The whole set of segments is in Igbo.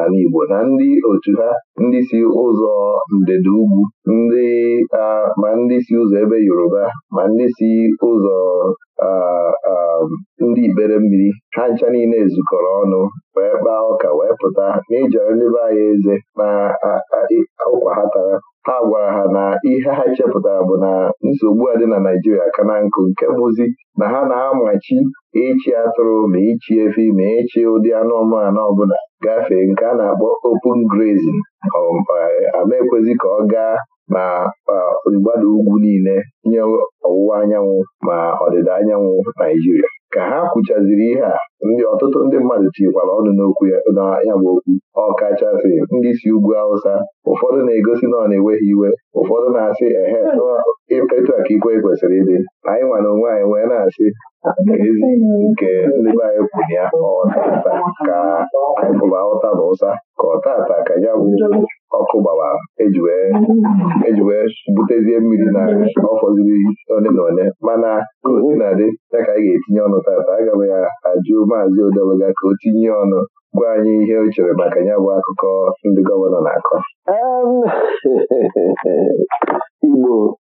n'ala Igbo na ndị otu ha ndị si ụzọ ndịda ugwu ndị ma ndị si ụzọ ebe Yoruba ma ndị si ụzọ ndị ibere mmiri ha ncha niile zukọrọ ọnụ wee kpaa ọka wee pụta na ijere ndị be anyị eze ma ụkwa ha tara ha gwara ha na ihe ha chepụtara bụ na nsogbu a dị na Naijiria ka na nkụ nke bụzi na ha na-amachi ịchị atụrụ ma ịchị efi ma ịchị ụdị anụmanụ ọbụla gafee nke a na-akpọ open grazing ama um, eh, ka ọ gaa ma eh, mgbada ugwu niile nye ọwụwa anyanwụ ma ọdịda anyanwụ Naijiria. ka ha kwuchaziri ihe a ndị ọtụtụ ndị mmadụ tinyekwara ọnụ n'okwu ya bụ okwu ọkachasị ndị si ugwu Awụsa ụfọdụ na-egosi na ọ na-enweghị iwe ụfọdụ na-asị ehe e, etu a ka ikwe kwesịrị ịdị anyị nwa onwe anyị wee na-asị ezi nke ndị be anyị kwuru ya ọtata ka anyị pụrụ ahụta na ụsa ka ọtata ka ya bụ ọkụ gbawa eji e wee butezie mmiri na ọfọziri fọziri na ole mana gosi na dị ya ka anyị ga-etinye ọnụ tata agaghị ya ajụ maazị Odeluga ka o tinye ọnụ gwa anyị ihe o chere maka ya bụ akụkọ ndị gọvanọ na-akọ Igbo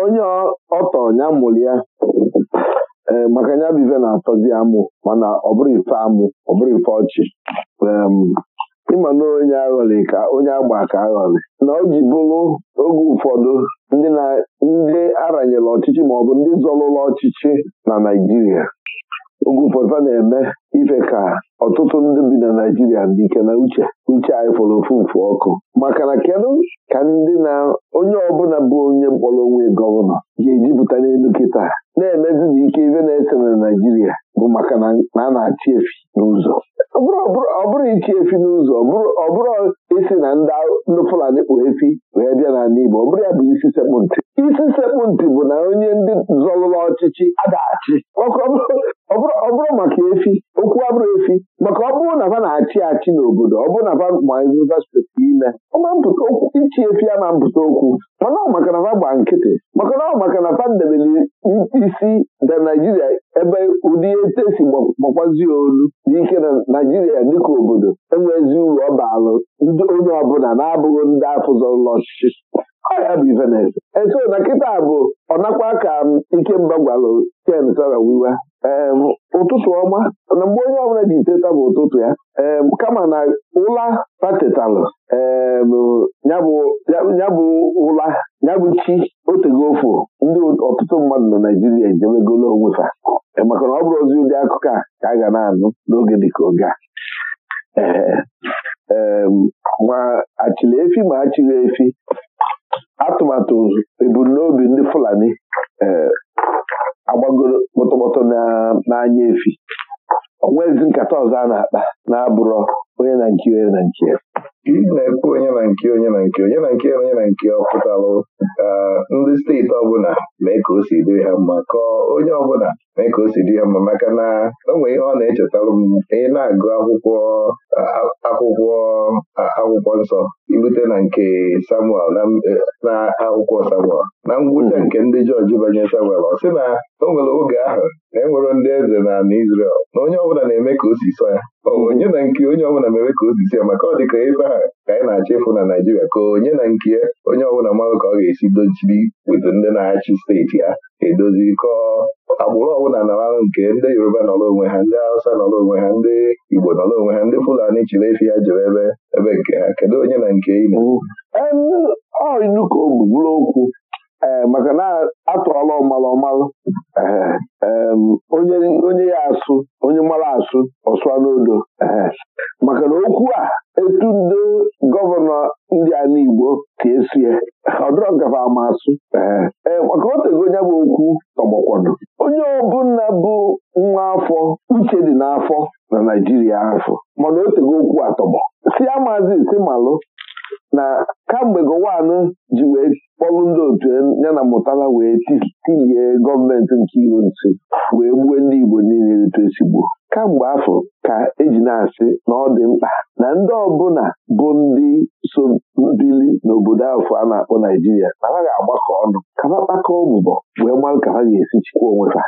onye ọtọ ya mụrụ ya maka ya bụ ife na-atọzi amụ mana ọ bụrụ ife amụ ọ bụrụ ife ọchị ịma na onye aghọrị ka onye agba ka aghọrị na o ji bụrụ oge ụfọdụ ndị aranyere ọchịchị maọbụ ndị zọlụlụ ọchịchị na Naịjirịa oge na-eme ife ka ọtụtụ ndị bi na Naijiria dị ike na uche uche anyị fọrọ ofu mfu ọkụ maka na kedu ka ndị na onye ọbụla bụ onye mkpọrọ onwe gọvanọ ga ejipụta n'elu kịta na-emezi na ike ife na-ese na Naijiria bụ maka na a na-achị efi n'ụzọ ọ bụrụ ichi efi n'ụzọ ọ bụrụ isi na ndị Fulani kpụ efi wee bịa n'ala Igbo ọ bụrụ ya bụ isi sekpụ ntị isi sekpụ ntị bụ na onye ndị zọrụla ọchịchị adaghachi ọ bụrụ maka efi okwu abụrụ efi maka ọ bụrụ na ha na-achị achị n'obodo ọ bụrụ na ha mazivasiti ime ichi efi a ma mpụta okwu mana ọ maka na ha gba nkịtị maka na ọ maka na pandemili isi na naijiria ebe ụdị ete si gbakwazi olu n'ike na naijiria dịka obodo enwezi uru ọ baalụ ndị onye ọbụla na-abụghị ndị afụzọrụla ọchịchị ọya bụ ivenez eso na kịta bụ ọ nakwa ka gwalụ ken sara wiwa ee ụtụtụ ọma na mgbe onye ọbụla ji teta bụ ụtụtụ ya ee kama na ụla patetalụ ee nyabụ ụla nyabụ chi otego ofu ndị ọtụtụ mmadụ na Naijiria ejebegolo onwe ha maka na ọ bụrụ ozi ụdị akụkọ a ka a ga na-anụ n'oge dịka oge a ma achịla efi ma achịghị efi atụmatụ ebumnobi ndị Fulani agbagoro n'anya efi onwezi nkata ọzọ a na-akpa na-abụrọ onye na nke onye na nke ị na-ekwu onye na nke onye na nke onye na nke onye na nke ọ ndị steeti ọbụla mee ka o si dịrị ha mma kọọ onye ọbụla mee ka o si dị ha mma maka na o nwere ihe ọ na echetarụ m ị na-agụ akwụkwọ akwụkwọ akwụkwọ nsọ irute na nke Samuel e, na akwụkwọ Samuel na ngwụcha hmm. nke ndị jọji banye Samuel ọ sị na o nwere oge ahụ na enwere ndị eze na ala Izrel na onye ọbụla na-eme ka o si sọ ya onye na nke onye ọbụla mere ka o si ya maka ọ dị ka ebe ahụ ka anyị na-achọ ịfụ na Naịjirịa ka onye na nke onye ọbụla mmadụ ka ọ ga-esi dochiri weta ndị na-achị steeti ya edozi kọọ agbụrụ ọbụla nọrọ nke ndị Yoruba nọrọ onwe ha ndị Hausa nọrọ onwe ha ndị Igbo nọrọ onwe ha ndị Fulani chiri efi ya jere ebe ebe nke ha kedu onye na nke Igbo ilu ka o okwu eh, maka na atụọla ọmalụ ọmalụ eh, onye ya asụ onye mara asụ ọsụa n'odo eh, maka na okwu a etu ndị gọvanọ ndị a n'Igbo ka esie ọ dịrọ gafe ama asụ ee maka otego onye bụ okwu tọgbọkwado ndị ọbụla bụ nwa afọ uche dị n'afọ na naijiria afọ mana o tego okwu atọgbọ si amazi si malụ na kamgbe gọwanụ ji wee kpọrụ ndị otu ya na mụtara wee tinye gọọmenti nke iro nsi wee gbuo ndị igbo niile etu esigbo kamgbe afọ ka eji na-asị na ọ dị mkpa na ndị ọbụla bụ ndị so dịli n'obodo afọ a na-akpọ Naijiria na ha ga-agbakọ ọnụ ka ha kpakọọ mbọ wee mara ka ha ga-esi chịkwa onwe ha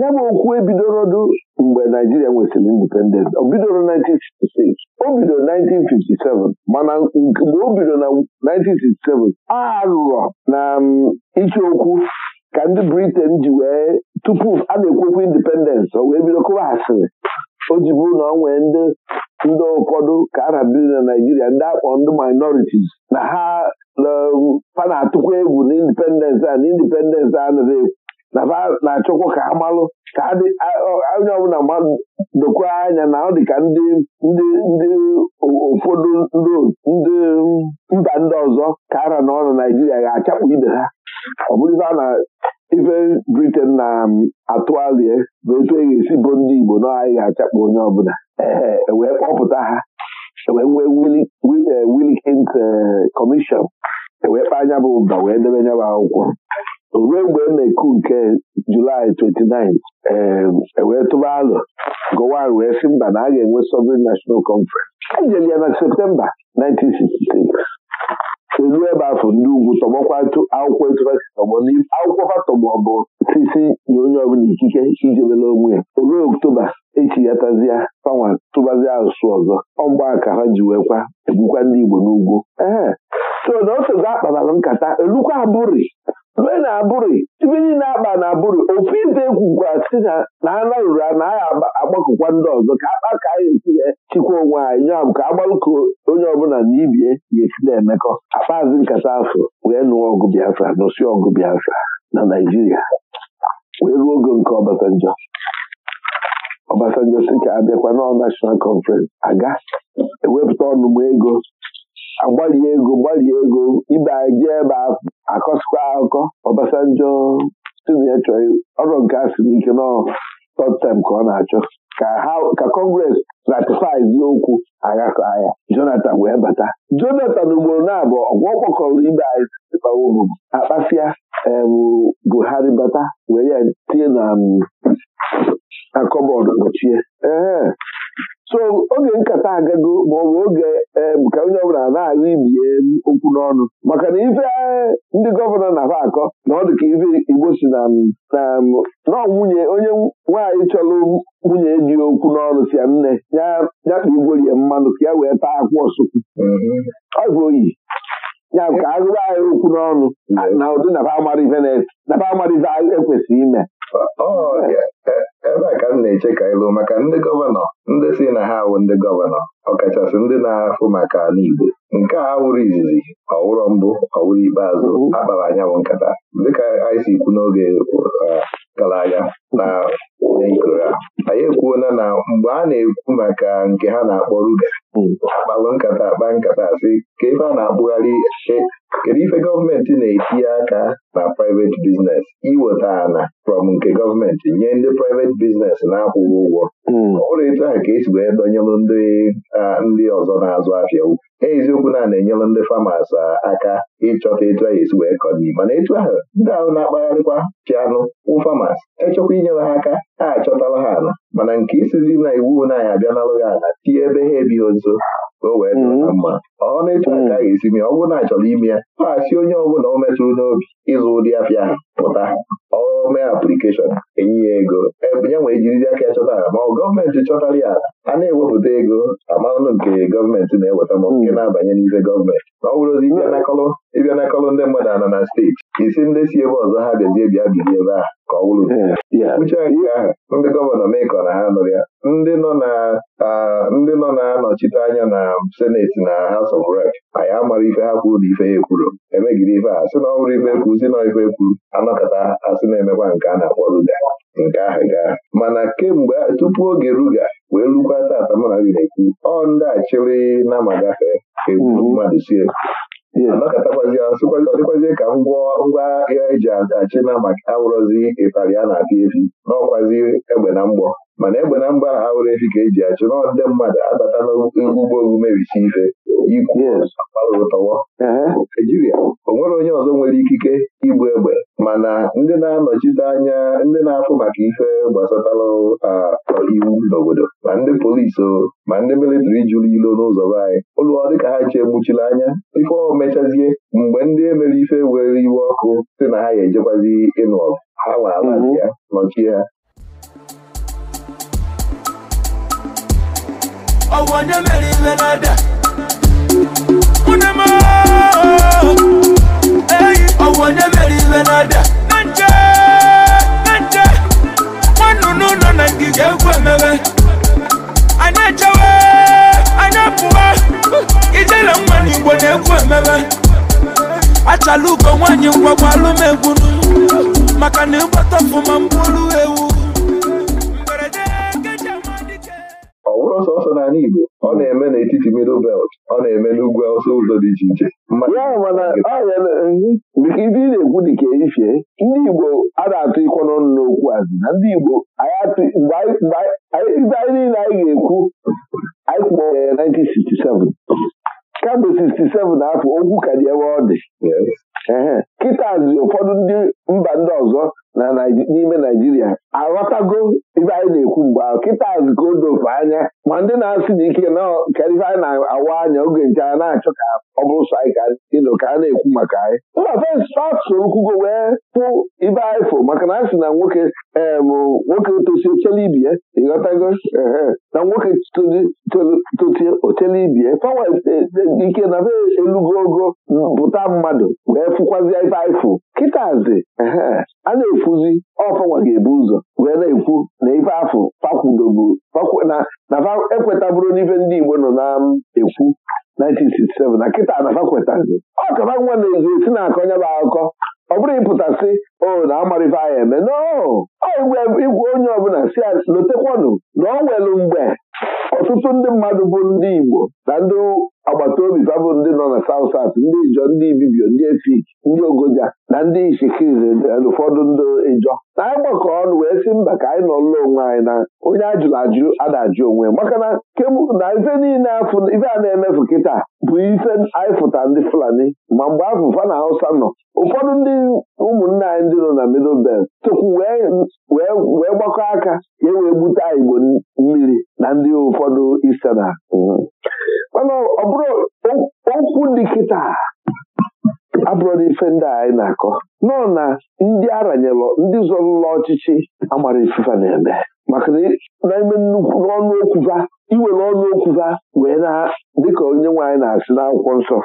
ya bụ okwu ebidorodụ mgbe Naijiria nwesịrị indipendent o bidoro 1966 o bidoro 1957 mana mgbe o bidoro na 1967 aghụghọ na iche okwu ka ndị Britain ji wee tupu a na-ekwekwa indipendensị o wee bido kụwa asịrị o ji bụrụ na ọ nwee ndị ndị ụfọdụ ka a na adị na Naijiria ndị akpọ ndị minoritis na ha fa na-atụkwa egwu na indipendensị a na indipendensị anaghị egwu na ha na-achọkwa ka ha malụ ka anya ọbụla mmadụ dokwa anya na ọ dị ka ndị ndị ndị ụfọdụ ndị mba ndị ọzọ ka ara na ọ na Naijiria ga achapụ ibe ha ọ bụrụ a na ife briten na um, atụalie bụ etu e ga-esi bụ ndị Igbo na anyị ga onye ọbụla e wee kpọpụta ha e wee nwee Wilkins e, e wee kpaa anya bụ ụba wee debe anya akwụkwọ ruo mgbe e na-eku nke Julaị 29 wee tụba alụ gowan wee sị mba na a ga-enwe Sovereign National Conference ya na Septemba 1966 seruo ebe afọ ndị ugwu tọgbọkwa akwụkwọ etufasi tọgbọ akwụkwọ fatọgbọ bụ sisi nye onye ọbụla ikike ijebela onwe ya olu oktoba echi ya tazia fanwa tụbazia asụsụ ọzọ ọgba ka ha ji wee kwa egbukwa ndị Igbo n'ugwu ee so na o sogo akpabara nkata elukwa abụrị rue na abụrụ ibe niile akpa na abụrụ ofu ibe ekwukwa si na na ana ruru anaghị agbakọkwa ndị ọzọ ka akpa ka anyị etinye chịkwa onwe anyị nya bụ ka agbalụko onye ọbụla na ibie ga-esi na-emekọ akpazi nkata afọ wee nụọ ọgụ Biafra nụsị ọgụ Biafra na Naijiria wee ruo oge nke Obasanjo Obasanjo si ka abịakwa nọọ nashọnal Conference aga ewepụta ọnụmụ ego agbalie ego gbalie ego ibe anyị ebe ahụ akọsikwa akụkọ Obasanjo ya chọrọ ọrụ nke asị n'ike nọ third ka ọ na-achọ ka kọngres ratifai zi okwu agakọ ya Jonathan wee bata Jonathan ugboro na-abụ ọgwọ ọ kpọkọrọ ibe anyị bawobo akpasịa Buhari bata were ya tinye na akọbọọdụ gbochie ee so oge nkata agago bụ oge ka onye ọbụla na-agụ ibie okwu n'ọnụ maka na ife e, ndị gọvanọ na-aba akọ na ọ dị ka ife igbo si na nọ nwunye onye nwaanyị chọrọ nwunye dị okwu n'ọnụ sia ya nne ya nyakpa igwerie mmanụ ka ya wee taa akwụ ọsụkwụ ọ bụ oyi ya ka agụba anyị okwu n'ọnụ na ụdị nafa amara ife ekwesịghị e ime oh, na-eche ka ịlụ maka ndị gọvanọ ndị si na ha awụ ndị gọvanọ ọkachasị ndị na-afụ maka ala Igbo nke a wụrụ izizi ọwụrọ mbụ ọwụrụ ikpeazụ akpara anyanwụ nkata dịka anyị si n'oge uh, gara aga na ikoro anyị ekwuola na mgbe a na-ekwu maka nke ha na-akpọ ruga gbalụ nkata akpa nkata si ka ebe a na-akpụgharị e, kedu ife gọọmenti na-etinye aka na private biznes iweta ana from nke gọọmenti nye ndị private biznes na-akwụghị ụgwọ hmm. ọ bụrụ etu ahụ ka esi wee dọnyelụ ndị ọzọ na-azụ ahịa eziokwu na na-enyelụ ndị famas aka ịchọta etu a esi wee kọdii mana etu ahụ ndị ahụ na-akpagharịkwa pianụ ụfamas echekwa inyere ha aka ha achọtala ha ala mana nke isizi na iwu na anyị abịanalụ ha ala tie ebe ha ebighị nso ka o wee dịrị mm-hmm. mma ọọ na etu aka ga-esi mee ọ bụrụ na achọrọ ime ya ọ asị onye ọbụla o metụrụ n'obi ịzụ ụdị apịa ahụ pụta ọme aplikeshọn enye ya ego e, ya nwee jirizi aka ya chọtara ma ọ gọọmenti chọtara ya ala a na-ewepụta ego amanụ nke gọọmenti na-eweta ma nke na-abanye n'ife gọọmenti na ọ bụrụzi ịbịa n'akọlụ ndị mmadụ anọ na steeti isi ndị si ebe ọzọ ha bịazie bịa bilie ebe a. ka ọ wụrụ nke ahụ ndị gọvanọ mekọ na ha nụrụ ya ndị nọ ndị nọ na-anọchite anya na seneti na House of Rep anyị amara ife ha kwuru na ife ya ekwuru emegide ife a sị na ọ bụrụ ife ekwu si na ife ekwuru anọkọta asị na-emekwa nke a na-akpọ ruga nke ahụ gaa mana kemgbe tupu oge ruga wee lukwa tata mana gị na-ekwu ọ ndị achịrị na ma gafee egwu mm-hmm. mmadụ sie anakatakwazi ya ọ dịkwazie ka ngwa agha eji achị na maka awụrọzi ịtarị a na-apị efi n'ọkwazi egbe na mgbọ mana egbe na mgba na ha were efi ka eji achụ na ndị mmadụ abata n'ugbo ogu mebisi ife ikwuo tọwọ Naijiria o nwere onye ọzọ nwere ikike igbu egbe mana ndị na-anọchite anya ndị na-afụ maka ife gbasatara iwu n'obodo ma ndị polisi ma ndị militiri jụrụ ilo n'ụzọ be anyị ụlọ dịka ha chee gbuchiri anya ife ọ mechazie mgbe ndị emere ife were iwe ọkụ si na ha ya ejekwazi ịnụ ọgụ ha nwa ala mhm. ya nọchie ha mere na ní mẹ́rin lẹ́nàdà. Unama eyi ọwọ́ ní mẹ́rin lẹ́nàdà. Nànjẹ́ nànjẹ́ nje nùnú nọ na ndị egwu emebe. Anyị echewe anyị pụwa ijele nwa n'Igbo na-egwu emebe. Achala ugo nwaanyị ngwagwa alụmegwu maka na ịgbata ọfụma mgbolu ewu. ọ bụrụ sọsọ n'ala Igbo ọ hmm. na-eme n'etiti middle belt ọ na-eme n'ugwu awụsa ụzọ dị iche iche ibe eh, na-ekwu dị ka erifie ndị Igbo a na-atụ ịkọ n'ọnụ n'okwu azụ na ndị Igbo anyị niile anyị ga-ekwu anyị kpọrọ ya 1967 kamgbe 67 afọ okwu ka dị ebe ọ dị na-achọ ka ọ bụrụ sọ anyị ka a na-ekwu maka anyị mba fes faksoro kwugo wee pụ ibe ifo maka na a sị na nwoke nwoke tosi otele ibie ịghọtago na nwoke totie otele ibie fawa e, e, e, ike na be elugo ogo bụta mmadụ wee fụkwazi ibe ifo kịtazi a na-efuzi ọfanwa ga-ebu ụzọ wee na-ekwu na ife afọ fakwudobu na ekweta n'ife ndị Igbo nọ na-ekwu 1967 na kịta anafa kwetazi ọ kaba nwa na-ezu esi na akọ nyaba akụkọ ọ bụrụ ịpụtasị o na amarịfa anyị eme n'igwe onye ọbụla si lotekwanụ na ọ nwere mgbe ọtụtụ ndị mmadụ bụ ndị Igbo na ndị agbata obi ndị nọ na saụt sat ndị Ijọ ndị Ibibio ndị Efik ndị ogoja na ndị ishikize ụfọdụ ndị ịjọ na anyị ọnụ wee sị mba ka anyị nọlụla onwe anyị na onye ajụrụ ajụ ada-ajụ onwe maka na na ife niile ife a na-emefu kịta bụ ife anyị fụta ndị Fulani ma mgbe afụfa na Hausa nọ ụfọdụ ndị ụmụnne anyị ndị nọ na Middle Belt wee gbakọ aka ka e wee gbute Igbo mmiri na ndị ụfọdụ isena mm-hmm. mana ọ bụrụ okwu dị kịta abụrụla ife ndị anyị na-akọ nọ na ndị aranyelọ ndị zọrụla ọchịchị amara ifufe na-eme maka na-eme nnukwu n'ọnụ okwuva iwere ọnụ okwuva wee na dịka onye nwaanyị na-asị akwụkwọ nsọ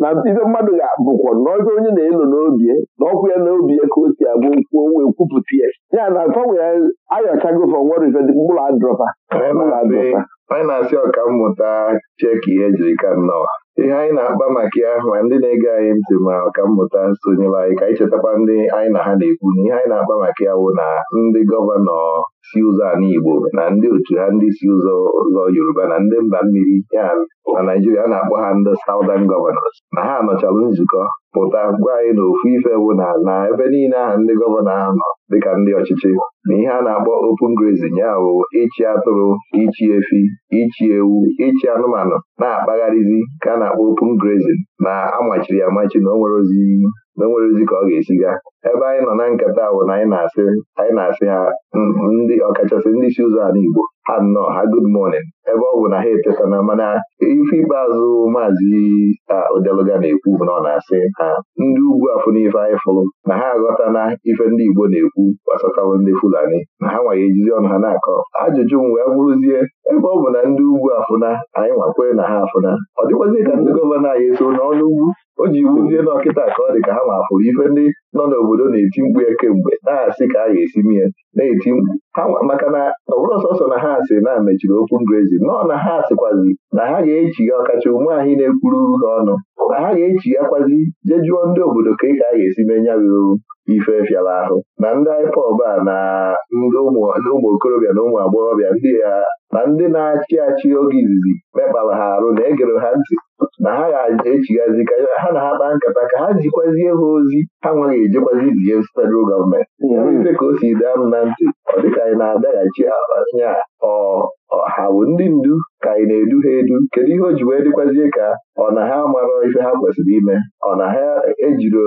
na ibe mmadụ ga-abụkwa na ọjọ onye na-elo n'obi na ọkwụ ya n'obi ka o si abụ okwu wee kwupụta ya ya na gbanwe ya ayọchagova nwere ife mkpụrụ adrọpa anyị na-asị mmụta cheki ihe jiri ka nnọọ ihe anyị na-akpa maka ya ma ndị na-ege anyị ntị ma ọkammụta sonyere anyị ka anyị chetakwa ndị anyị na ha na-ekwu na ihe anyị na-akpa maka ya na ndị gọvanọ si ụzọ ala Igbo na ndị otu ha ndị si ụzọ ụzọ Yoruba na ndị mba mmiri ya na Naijiria a na-akpọ ha ndị Southern Gọvanọs na ha nọchalụ nzukọ pụta gwa anyị na ofu ife bụ na na ebe niile ahụ ndị gọvanọ ahụ nọ dịka ndị ọchịchị na ihe a na-akpọ open grazing ya bụ ịchị atụrụ ichi efi ichi ewu ichi anụmanụ na-akpagharịzi ka a na-akpọ open grazing na amachiri amachi na o nwere ozi na nwere nwerezi ka ọ ga-esi gaa ebe anyị nọ na nkata bụ na anyị na-asị anyị na-asị ha ndị ọkachasị ndị isi ụzọ ala Igbo ha nnọọ ha gud morning ebe ọ bụ na ha etetana mana ife ikpeazụ maazị Odeluga na-ekwu bụ na ọ na-asị ha ndị ugwu afụ n'ife anyị fụrụ na ha aghọta na ife ndị Igbo na-ekwu gbasatawo ndị Fulani na ha nwaghị ejizi ọnụ ha na-akọ ajụjụ m wee bụrụzie ebe ọ bụ na ndị ugwu afụna anyị nwakwe na ha afụna ọ dịkwazi ka ndị gọvanọ anyị eso n'ọnụ ugwu o ji wuzie n'ọkịta ka ọ dị ka ha ma ife ndị nọ n'obodo na-eti mkpu ya kemgbe na-asị ka a ga-esi mie na-eti mkpu maka na ọ bụrụ sọsọ na ha asị na mechiri okwu ngrezi nọọ na ha asịkwazi na ha ga-echi ya ọkacha ume na-ekwuru ha ọnụ na ha ga-echi ya kwazi je jụọ ndị obodo ka ị ka a ga-esi mee nyabụ ife fịara ahụ na ndị IPOB a na ndị ụmụ okorobịa na ụmụ agbọghọbịa ndị ya ndị na-achị achị oge izizi mekpara ha arụ na egere ha ntị na ha ga-echighazi ka ha na ha kpa nkata ka ha zikwazie ha ozi ha nweghị ejekwazi izie federal gọọmenti hmm. ife ka o si daa m na ntị ọ dịka anyị na-adaghachi anya ọha bụ ndị ndu ka anyị na-edu ha edu kedu ihe o ji wee dịkwazie ka ọ na ha mara ife ha kwesịrị ime ọ na ha ejiro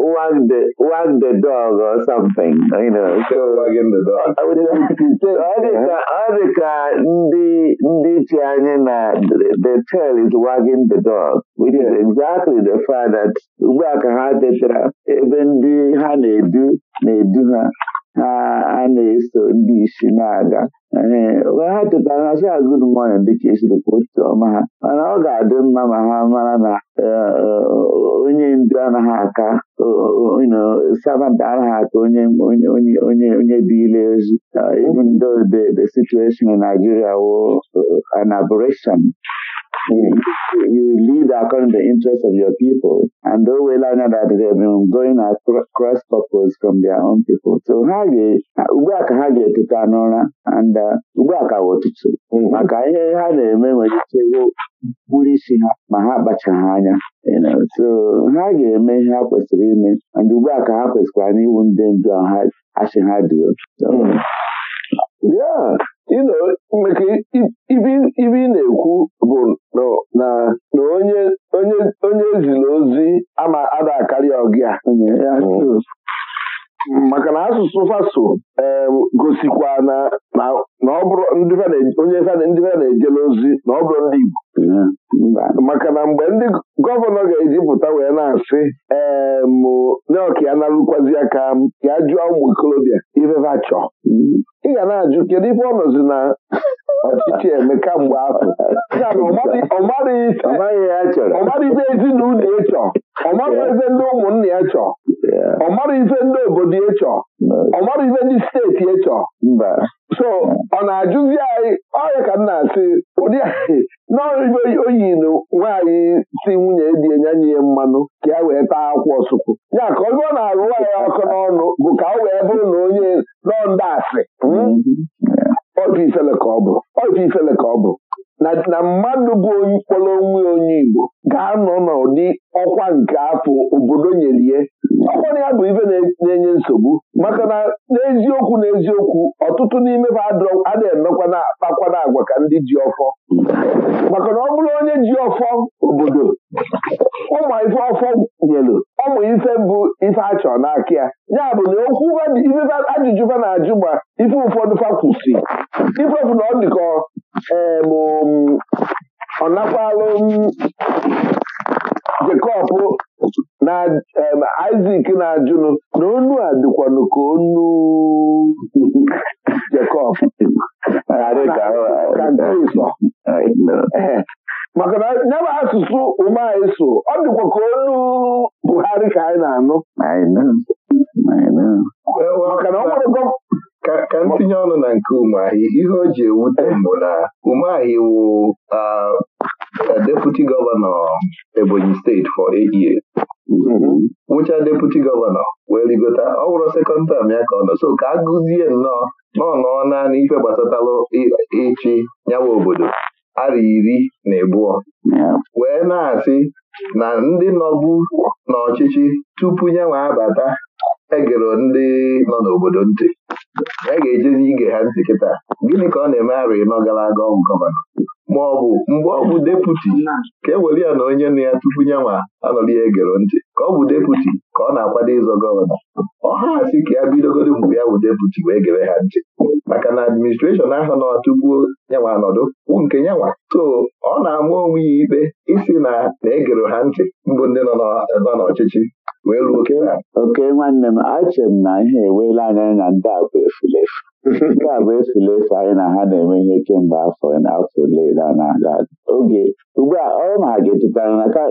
wag the wag the dog or something you know so ọ dị ka ndị ndị chi anyị na the tail is wagging the dog which is exactly the fact that ugbu a ka ha tetara ebe ndị ha na-edu na-edu ha ha na-eso ndị isi na-aga ha tetara ha sị ha good morning dịka esiri kwụtụ ọma ha mana ọ ga-adị mma ma ha mara na onye ndu anaghị aka servant arahat onye onye onye onye dị ile ozi even though the the situation in Nigeria was uh, an aberration You, you lead according to the interest of your people. And o wela anya that they have been going across purpose from their own people. So ha ugbu a ka ha ga-eteta n'ụra and ugbu a ka ụtụtụ maka ihe ha na-eme nwere ike mkpụrụ isi ha ma ha ha anya ha ga-eme ihe ha kwesịrị ime ndị ugbu a ka ha kwesịkwara n'iwu ndị ndu asị ha duo ibi ibe ị na-ekwu bụ na onye ezila ozi ama ada akarịa ọgịa mm. maka na asụsụ faso gosikwa na onye ndị fada na-ejela ozi na ọ bụrụ ndị Igbo maka na mgbe ndị gọvanọ ga-ejipụta wee na-asị ee mneọka ya narụkwazi aka ya a jụọ ụmụ ikolobịa ifefe chọọ ị ga na-ajụ kedu ife ọ nọzi na ọchịchị eme kamgbe afọ ọmara ife ezinụlọ ya chọọ ọmara ife ndị ụmụnna ya chọọ ọmara ife ndị obodo ya chọọ ọmara ife ndị steeti ịchọ. so ọ na-ajụzi anyị ọya ka m na-asị ụdị anyị n'oyibo oyi na nwaanyị si nwunye di enyenye ya mmanụ ka ya wee taa akwa ọsụkwụ ya ka ọ bụrụ na-arụ nwaanyị ọkụ n'ọnụ bụ ka o wee bụrụ na onye nọnda asị hmm? mm-hmm. obi ifele ka ọ bụ na mmadụ bụ onye kpọrọ onwe onye Igbo ga-anọ n'ụdị ọkwa nke afọ obodo nyelie ọkwana ya bụ ibe na-enye nsogbu maka na n'eziokwu n'eziokwu ọtụtụ n'ime ha adịghị emekwa na akpakwana agwa ka ndị ji ọfọ maka na ọ bụrụ onye ji ọfọ obodo ụmụ ife ọfọ nyelu ọmụ ife bụ ife achọ n'aka ya ya bụ na okwu ajụjụ fa na-ajụ ma ife ụfọdụ fa kwụsị ifefu na ọ dịka ọ nakwalụ Jekọb na Isak na-ajụnụ na onu a dịkwanụ ka onu maka na nyaba asụsụ ụmụ anyị so ọ dịkwa ka olu Buhari ka anyị na-anụ maka na ọ nwere ka ntinye ọnụ na nke umeahị ihe o ji ewute mbụ na umeahị wụ deputy gọvanọ Ebonyi steeti for eight nwụcha mm-hmm. wụcha gọvanọ wee rigota ọ bụrụ sekọnd tam ya ka ọ nọ so ka a gụzie nnọọ na ọ nọọ naanị ife gbasatalụ ịchị nyawa obodo arị iri na ọ wee na-asị na ndị nọbu n'ọchịchị tupu ya nyanwe abata egero ndị nọ n'obodo ntị ya e ga-ejezi ige ha ntị kịta gịnị ka ọ na-eme arị ịnọ gara aga ọgwụ gọvanọ ma ọ bụ mgbe ọ bụ deputi ka e were ya na onye nna ya tupu ya ma anọrọ ya egero ntị ka ọ bụ deputi ka ọ na-akwado ịzọ gọvanọ ọha si ka ya bidogodo mgbe ya bụ deputi wee gere ha ntị maka na administreshọn ahụ na tupu yanwa nọdụ kwụ nke yanwa so ọ na-ama onwe ya ikpe isi na na-egero ha ntị mbụ ndị nọ n'ọchịchị wee ruo oke nwanne m achere m na ihe ewela anya na ndị a bụ efulefu nke a bụ efule efe anyị na ha na-eme ihe kemgbe afọ afọ ole na-aga oge ugbu a ọ ma ga-echetara na ka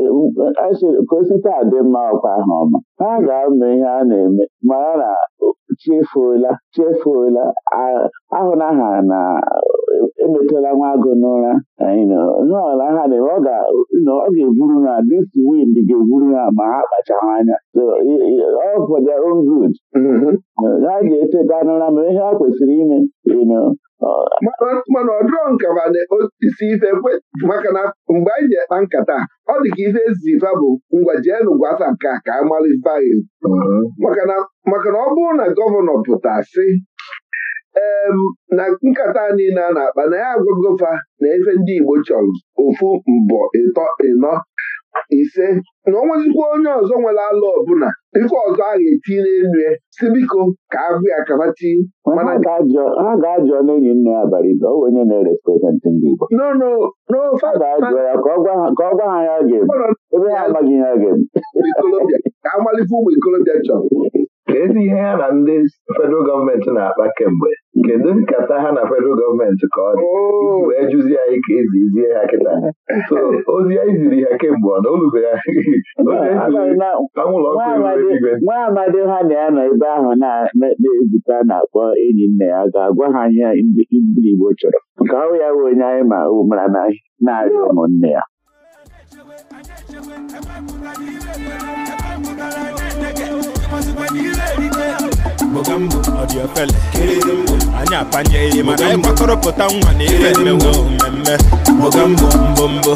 osite a adị mma ọkwa ahụ ọma ha ga-eme ihe a na-eme mara na chefuola chefuola ahụ ha na emetela nwa agụ n'ụra ọla ha dị ọ ga-eburu ha this wind ga-eburu ha ma ha kpachara anya ọ for their own good mm-hmm. ha ga-eteta n'ụra ma ihe ha kwesịrị ime mana ọ dịrọ nkaba na isi ife maka na mgbe anyị ji ekpa nkata ọ dị ka ife ezifa bụ ngwa jeenu gwasa nke a ka a mara ife anyị maka na ọ bụrụ na gọvanọ pụta sị na nkata niile a na-akpa na ya agwagofa na efe ndị Igbo chọrọ ofu mbọ ịtọ ịnọ ise na ọ nwezikwa onye ọzọ nwere ala ọbụla ife ọzọ a ga-eti n'elu ya si biko ka agụ ya kabati ha ga-ajọ n'enyi nne ya bara ibe onwe onye na-erepresentị ndị Igbo n'ofe ka ọ gwa ha ya ga-eme ebe ha amaghị ihe ha ga-eme ka amalite ụmụ ikolobịa chọrọ ka ezi ihe ya na ndị federal gọọmenti na-akpa kemgbe kedu nkata ha na federal gọọmenti ka ọ dị oh. wee jụzie anyị ka ezizie ha kịta so ozi anyị ziri ha kemgbe ọ na olubeghị nwa amadi ha na ya nọ ebe ahụ na-ezukọ a na-akpọ enyi nne ya ga-agwa ha ihe ndị Igbo chọrọ nke ọrụ ya bụ onye anyị ma mara na na-arịọ ụmụnne ya anyị apanye ihe mana anyị gbakọrọpụta nwa na ihe mmenwu mmemme mbombo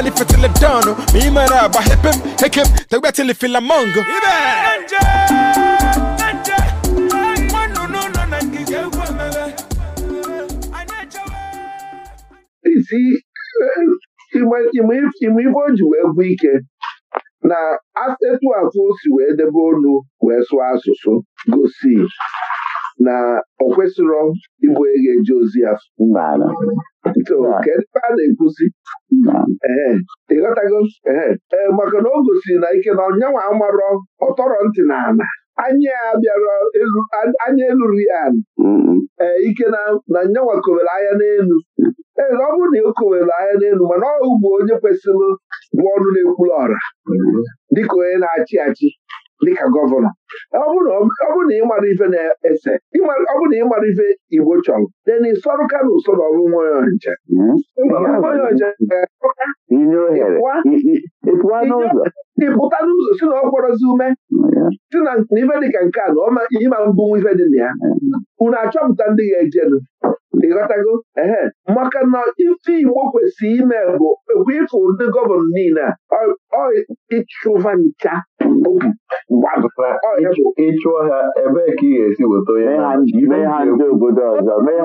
خلي في تلبدانو ميما انا بحبم هكم تبعت اللي في لامونجو See, ịma ife o ji wee bụ ike na etu afọ o si wee debe olu wee sụọ asụsụ gosi na ọ kwesịrọ ịbụ onye ga eje ozi ya so kedu ebe a na-ekwusi ghọtago? ee e, maka na o gosiri na ike na ọnyanwa amarọ ọtọrọ ntị na ana anya bịara anya eluru ya ee mm-hmm. ike na nyanwa kowere anya n'elu ee ọ bụrụ na o kowere anya n'elu mana ọ bụ onye kwesịrị bụ ọnụ na-ekwuru ọra mm-hmm. dịka onye na-achị achị dịka gọvanọ ọ bụrụ na ịmara ife na-ese ọ bụrụ na ịmara ife Igbo chọrọ de na ịsọrụ ka na usoro ọrụ nwa nche hmm? ịpụta n'ụzọ si na ọ kpọrọzi ume si na ife dịka nke a na ọma ma mbụ ife dị na ya unu achọpụta ndị ga-ejenu ịghọtago ehe maka na ife Igbo kwesịrị ime bụ ekwe ịfụ ndị gọvanọ niile a ọ ịchụva ncha okwu ịchụọ ha ebe ka ị ga-esi weta onye mee ha ndị obodo ọzọ mee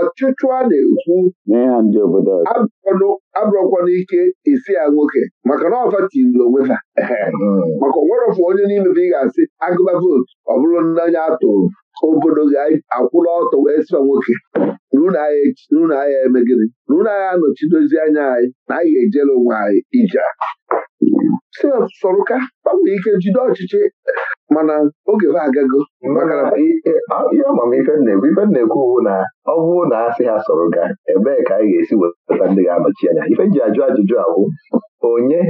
ọchịchụ a na-ekwu mee ha ndị obodo ọzọ abụrọkwana ike isi ya nwoke maka na ọfa tiri onwe ha hmm. maka onwerọfụ onye n'ime ị ga-asị agụba vootu ọ bụrụ n'anya atụrụ obodo ga-akwụla ọtọ wee sịa nwoke n'ụlọ ahịa emegide, n'ụlọ ahịa anọchidozi anya anyị na anyị ga-ejere onwe anyị ije si sọrụka gbanwee ike jide ọchịchị mana oge ha agago ihe amamife na-ekwu ife na na ọ bụrụ na asị ha sọrụka ebee ka e anyị ga-esi wepụta ndị ga-anọchi anya ife ji ajụ ajụjụ ahụ onye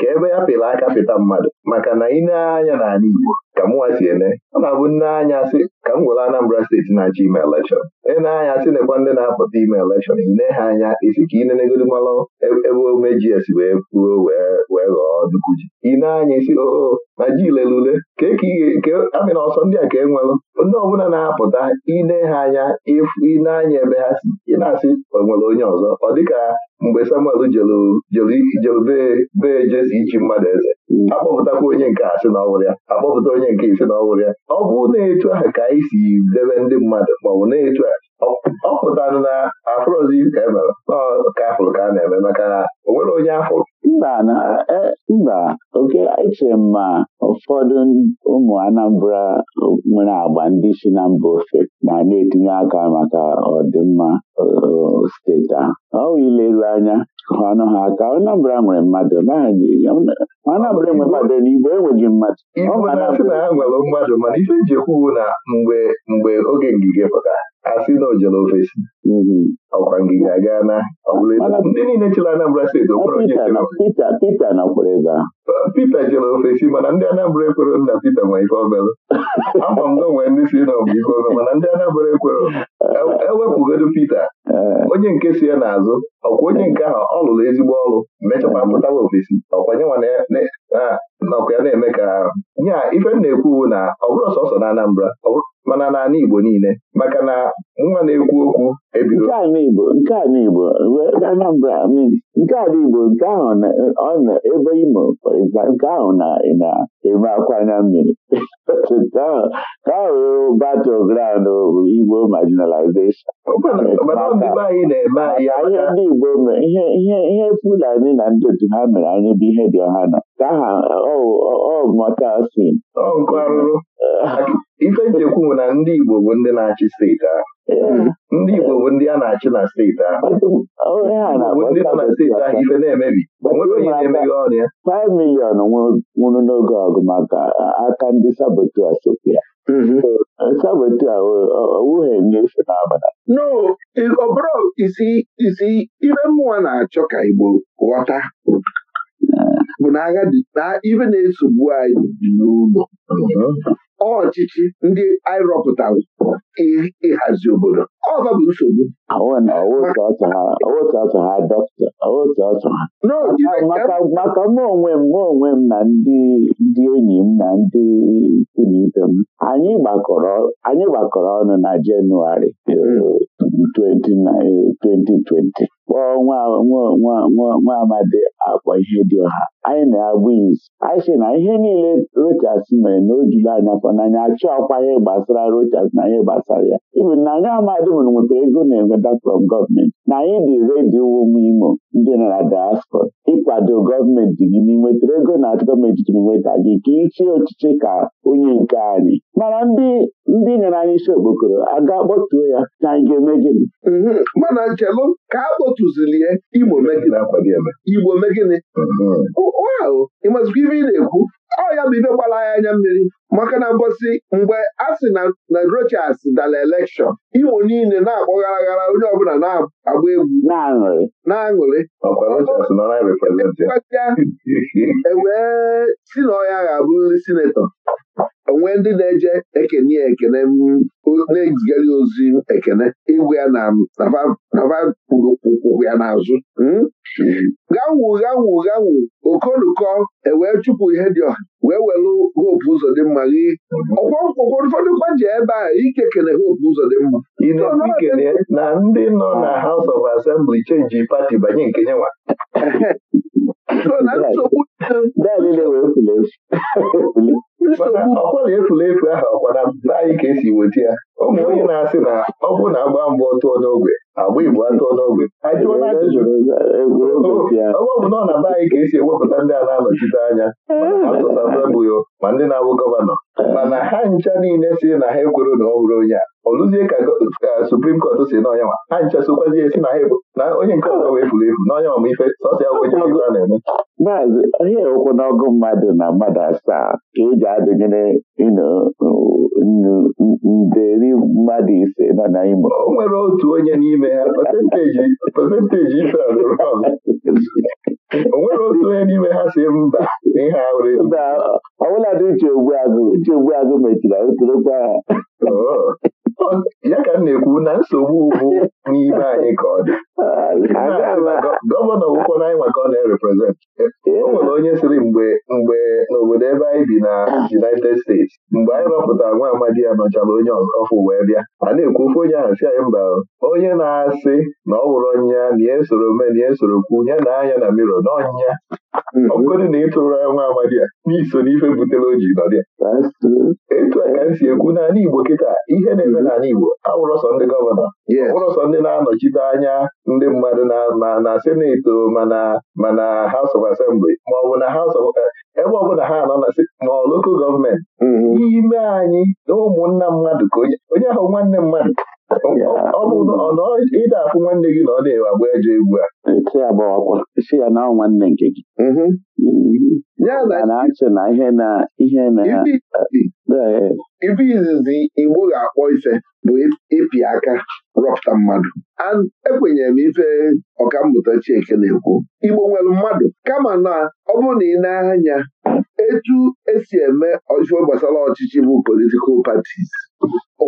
ka ebe ya pịrị aka pịta mmadụ maka na ị na anya n'ala Igbo ka mụnwa si ene ọ na-abụ nne anya sị ka m gwere Anambra steeti na-achọ ime elekshọn nne anya sị nekwa ndị na-apụta ime elekshọn ine ha anya isi ka inenegodu malụ e-, ebe omejiesi wee puo wee ghọọ duku ji ine anya isi oo oh, oh, ma ji lelule ka amịna ọsọ ndị a ka e nwelụ ndị ọbụla na-apụta ine ha anya ịfụ ine anya ebe ha si ị na-asị onwere onye ọzọ ọ dịka mgbe Samuel jelube jesi ichi mmadụ eze mm. akpọpụtakwa onye nke a sị na ọ ya akpọpụta onye onye nke ise na ọgwụ ya ọ bụ na-etu ahụ ka anyị si debe ndị mmadụ maọbụ na-etu ahụ ọ pụtanụ na afụrụzi ka e mere ka afụrụ ka a na-eme maka na o onye afụrụ e, mba oke echere m ma ụfọdụ ụmụ Anambra nwere agba ndị si na mba ofe na na-etinye aka maka ọdịmma steeti ahụ ọ ileru anya anụ ha ka Anambra nwere mmadụ Anambra enwe mmadụ n'Igbo enweghị mmadụ Igbo na na ha nwere mmadụ mana ife eji ekwuwu na mgbe mgbe oge ngige pụtara asị na ojere ofesi mhm. ọkwa ngige aga na ndị niile chere Anambra steeti okwere onye Pita nakwere ebe ahụ Pita jere ofesi mana ndị Anambra ekwere na Pita ma ife obere akwa m nwee ndị si na ọ bụ ife obere mana ndị Anambra ekwero ewepụgodo e Pita Eh, onye nke si ya n'azụ ọkwa onye nke ahụ ọ lụrụ ezigbo ọrụ mechakwa pụtawa ofesi ọkwa ya na-eme ka ya ife m na-ekwu na ọ bụrụ sọsọ na Anambra mana n'ala Igbo niile maka na nwa na-ekwu okwu ebido nke a Igbo Anambra nke ala Igbo nke ahụ na-ọnụ ebe Imo nke ahụ na-eme akwanya mmiri ka ahụ battle ground Igbo marginalization ihe ndị Igbo ihe Fulani na ndị otu ha mere anyị bụ ihe dị ọha nọ ka ha ọ mọta sin ife njekwu bụ na ndị Igbo bụ ndị na-achị steeti ahụ ndị Igbo bụ ndị a na-achị na steeti ahụ bụ ndị nọ na steeti ahụ ife na-emebi nwere onye na-emeghe ọrụ ya 5 miliọn nwụrụ n'oge ọgụ maka aka ndị sabotu asopịa mm-hmm. sabotu owuhe nyefe n'abalị no ọ bụrụ isi ibe mmụọ na-achọ ka Igbo ghọta bụ na agha ibe na-esogbu anyị dị n'ụlọ uh-huh. ọchịchị ndị anyị rọpụtara ịhazi obodo ọba bụ nsogbu maka mụ onwe m mụ onwe m na ndị ndị enyi m na ndị ikwu na ibe m anyị gbakọrọ ọnụ na Jenụwarị 2020 hmm. eh, kpọọ nwa amadi akpọ ihe dị ọha anyị na-abụ izu anyị sị na ihe niile Rochas mere na o juru anya kwa n'anya achọ ọkwa ihe gbasara Rochas na ihe gbasara ya ibu na anya amadi mụrụ nwetara ego na-enweta from gọọmenti na anyị dị redio ụmụ imo ndị nọ na diaspora ịkwado gọọmenti gị n'inwetara ego na gọọmenti jiri nweta gị ka ịchie ọchịchị ka onye nke anyị mana ndị ndị nyere anyị isi okpokoro aga kpọtuo ya na anyị ga-eme gịnị mhm. mana nchelu ka tụzilie Igbo Igbo megịnị mm-hmm. ịmazikwa ife ị na-ekwu ọ ya bụ ibe gbara ya anya mmiri maka na mbọsị mgbe a sị na Rochas dara elekshọn Igbo niile na-akpọgharaghara onye ọbụla na-agba egwu na-aṅụrị ewee e si na ọya ga abụ nri sinetọ onwee ndị na-eje ekene ya ekene na-ezigara ozi ekene ịgwụ ya na nava kpuru ụkwụ ya n'azụ hmm? gawụ gawụ gawụ okonukọ ewee chụpụ ihe dị ọha wee welụ hopu ụzọ dị mma gị ụfọdụ kwa ji ebe a ike kene hopu ụzọ dị mma na ndị nọ na House of Assembly chenji pati banye nke nyewa? na nsogbu ọkwa na efulefu ahụ ọkwa na anyị ka esi weta ya ụmụ onye na-asị na ọ bụrụ na agba mbụ tụọ n'ogwe agba igbo atụọ n'ogwe ọgbọ bụ ọ na be anyị ka esi ewepụta ndị a na-anọchite anya asụsabụyo ma ndị na-abụ gọvanọ mana ha ncha niile si na ha ekwere na ọ bụrụ onye a ọ lụzie ka suprim kọt si n'ọnya ma ha ncha sokwazie si na ha na onye nke ọzọ wee furu efu n'ọnya ma ife sọsịa bụ a na-eme maazị onye ewekwu n'ọgụ mmadụ na mmadụ asaa ka eji adụnyere nderi mmadụ ise nọ na Imo o nwere otu onye n'ime ha pasentaji ife o nwere otu onye n'ime ha si mba ihe ọbụla dị uche ogbuagụ uche agụ mechiri ha oh. ya ka m na-ekwu na nsogbu bụ n'ibe anyị ka ọ dị gọvanọ wụkwọ na anyị maka ọ na-ereprezent o nwere onye sịrị mgbe mgbe n'obodo ebe anyị bi na United States mgbe anyị rọpụtara nwa amadi ya nọchara onye ọfụ wee bịa a na-ekwu ofe onye ahụ si anyị mba onye na-asị na ọ wụrụ ọnya na esoro me na esoro kwu ya na anya na miro na ọnya hmm. ọgụgọdụ na ịtụrụ ya nwa amadi ya n'iso n'ife butere o ji nọdị etu a ka m si ekwu n'ala Igbo kịta ihe na-eme hmm. n'ala Igbo awụrụ sọ ndị gọvanọ awụrụ ndị na-anọchite anya ndị mmadụ na na mana na House ebe ọbụla ha anọ ma loko gọọmenti mm-hmm. n'ime anyị na ụmụnna mmadụ ka onye ahụ nwanne mmadụ ọ bụ na ịda afụ nwanne gị na ọ na-agba ejọ egwu a nwanne nke gị mm-hmm. na na ihe na ibe izizi igbo ga-akpọ ife bụ ịpị aka rọpụta mmadụ ekwenyere m ife ọkammụta Chieke na-ekwu igbo nwere mmadụ kama na ọ bụrụ na ị na-anya etu esi eme ọjụọ gbasara ọchịchị bụ politikal patis o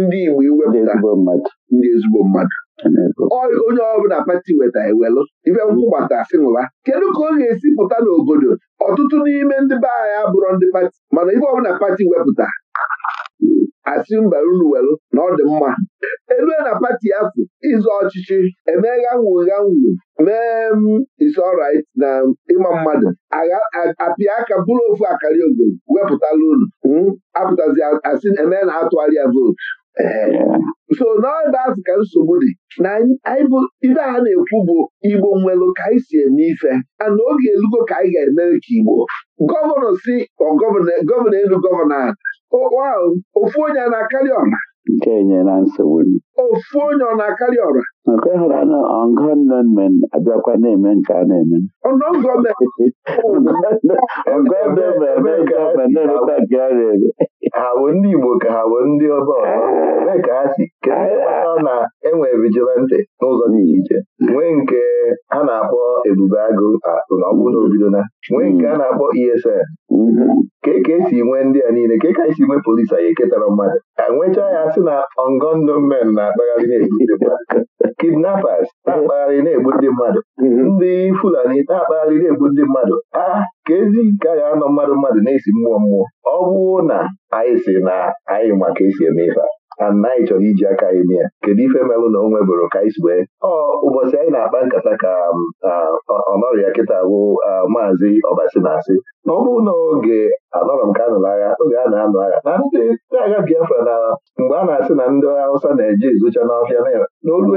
ndị igbo iwepụta ndị ezigbo mmadụ onye ọbụla pati weta ewelụ ibe nkwụ gbata sịnwụla kedu ka ọ ga-esi pụta n'obodo ọtụtụ n'ime ndị be anyị abụrụ ndị pati mana ibe ọbụla pati wepụta asị mba unu welụ na ọ dị mma elue na pati afọ, ịzụ ọchịchị emegha nwugha nwu mee m mm, isorit na ịma mmadụ apịa aka bụrụ ofu akarị ogo wepụtala unu hmm, apụtazi asị eme na atụgharịa vootu so n'ebe azụ ka nsogbu dị na ibe a na-ekwu bụ igbo nwelụ ka anyị si eme ife ana oge elugo ka anyị ga-eme ka igbo gọvanọ si gọvanọ elu gọvanọ ofu onye a na-akarị ọra nke nyere nsogbu ofu onye ọ na-akarị ọra nke hụrụ anụ ọngọnmen abịakwa na-eme nke a na-eme ọgọọmentị eme nke ọ na-emekwa nke ọ na-eme ha wee ndị Igbo ka ha bụ ndị ọba ọzọ ebee ka ha si kedu na enwee vigilante n'ụzọ dị iche iche nwee nke a na-akpọ ebube agụ akụ na ọbụ na nwee nke a na-akpọ ESN ka ka e esi nwee ndị a niile ka ka e esi nwee polisi anyị ketara mmadụ ka nwechaa ya sị na Ongondomen na-akpagharị na-egbu ndị mmadụ kidnappers na-akpagharị na-egbu ndị mmadụ ndị Fulani na-akpagharị na-egbu ndị mmadụ a ka ezi nke anọ mmadụ mmadụ na-esi mmụọ mmụọ ọ bụụ na anyị si na anyị ma ka esi eme ife a anyị chọrọ iji aka anyị mee ya kedu ife melụ na o bụrụ ka anyị si wee ọ ụbọchị anyị na-akpa nkata ka um, ọnọrịa kịta bụ maazị ọbasi na-asị na ọ bụrụ na oge anọrọ m ka anọ n'agha oge a na anụ agha na ndị agha Biafra na mgbe a na-asị na ndị Hausa na-eje izucha n'ọfịa n'olu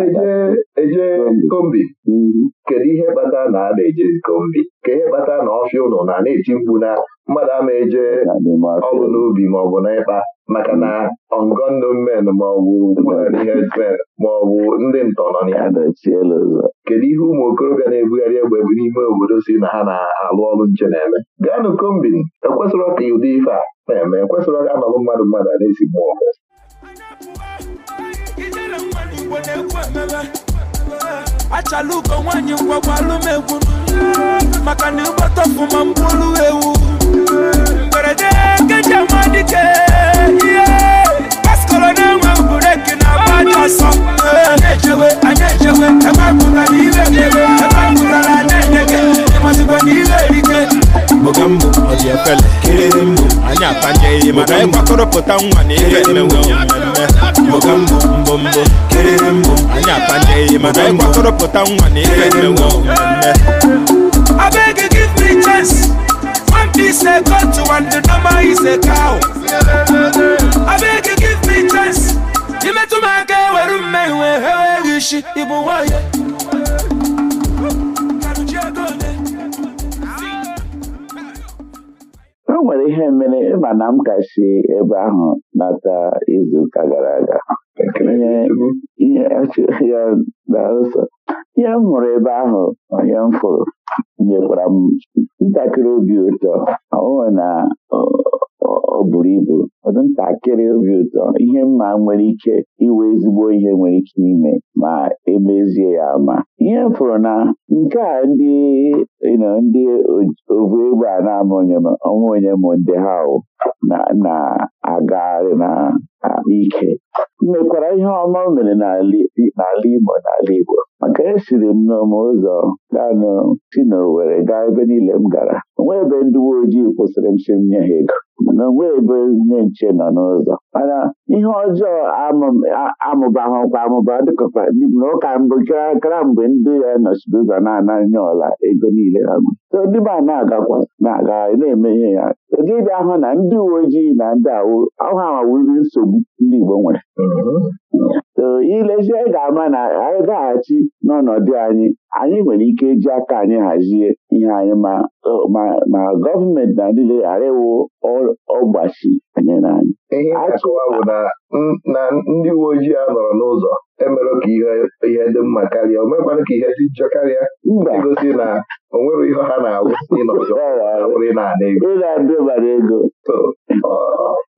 eje kombi mhm. kedu ihe kpata na a na eje kombi ka ihe kpata na ọfịa ụnọ na na-eti mkpu na mmadụ ama eje ọgwụ n'ubi maọbụ n'ịkpa maka na ọngọndụ hmm. men maọbụ hedsmen hmm. maọbụ ndị ntọ nọ ya kedu ihe ụmụ okorobịa na-ebugharị egbe n'ime obodo si na ha na-alụ ọrụ nche na-eme gaanụ kombin ekwesịrọ ka ụdị ife a na-eme ekwesịrọ ka anọlụ mmadụ mmadụ a na-esi mmụọ achala nwanyị nwaanyị ngwagwalumegwu maka na ịgbata ọfụma mkpụrụ ewu mberede nkeji amadike ihe paskọrọ na-enwe bureki na agba asọ. ọsọ ejewe Anya ejewe ebe pụtara mere ebe pụtara na-enye gị ịmazigbo na ihe mbụ ọ dị kịrịrịmbụ anyị atanye ihe mana anyị kwakọrọpụta nwa na ife mmenwe mmemme mbụ mbụ mbụ anyị atanye ihe mana anyị kwakọrọpụta nwa na ihe mmenwe mmemme abeg give me chance one piece a goat one the normal is a cow abeg give me chance imetụ m aka ewere mmehie eweghị isi ịbụ nwanyị ihe mere ịma na m ka ebe ahụ n'aka izuụka gara aga ihe m hụrụ ebe ahụ onye m fụrụ nyekwara m ntakịrị obi ụtọ ọnwe na ọ bụrụ ibu ọdụ ntakịrị obi ụtọ ihe mma nwere ike iwe ezigbo ihe nwere ike ime ma emezie ya ma ihe m fụrụ na nke a ndị ndị ovu egbe a na-ama onwe onye m ndị ha na-agagharị na ike mekwara ihe ọma mere n'ala Igbo n'ala Igbo maka esiri m n'ọma ụzọ ganụ si n'Owere gaa ebe niile m gara onwe ebe ndị uwe ojii kwụsịrị m si m nye ha ego na onwe ebe nche nọ n'ụzọ mana ihe ọjọọ amụbahụkwa amụba dịkọkwa na ụka mbụ kara mgbe ndị ya nọchiri ụzọ na ọla ego niile ha so ndị ma na-agakwa na-aga na-eme ihe ya dịbịa ahụ na ndị uwe ojii na ndị awụ ahụ awawiri nsogbu ndị Igbo nwere mm-hmm. so ilezie ga-ama na anyị gaghachi n'ọnọdụ anyị anyị nwere ike iji aka anyị hazie ihe anyị ma gọọmenti na niile arịwo ọgbachi anyị n'anya ihe akọwa bụ na ndị uwe ojii anọrọ n'ụzọ emerụ ka ihe dị mma karịa o mekwara ka ihe dị njọ karịa igosi na o nwere ihe ha na-awụ ịnọzọ bụrụ ị na-ana ego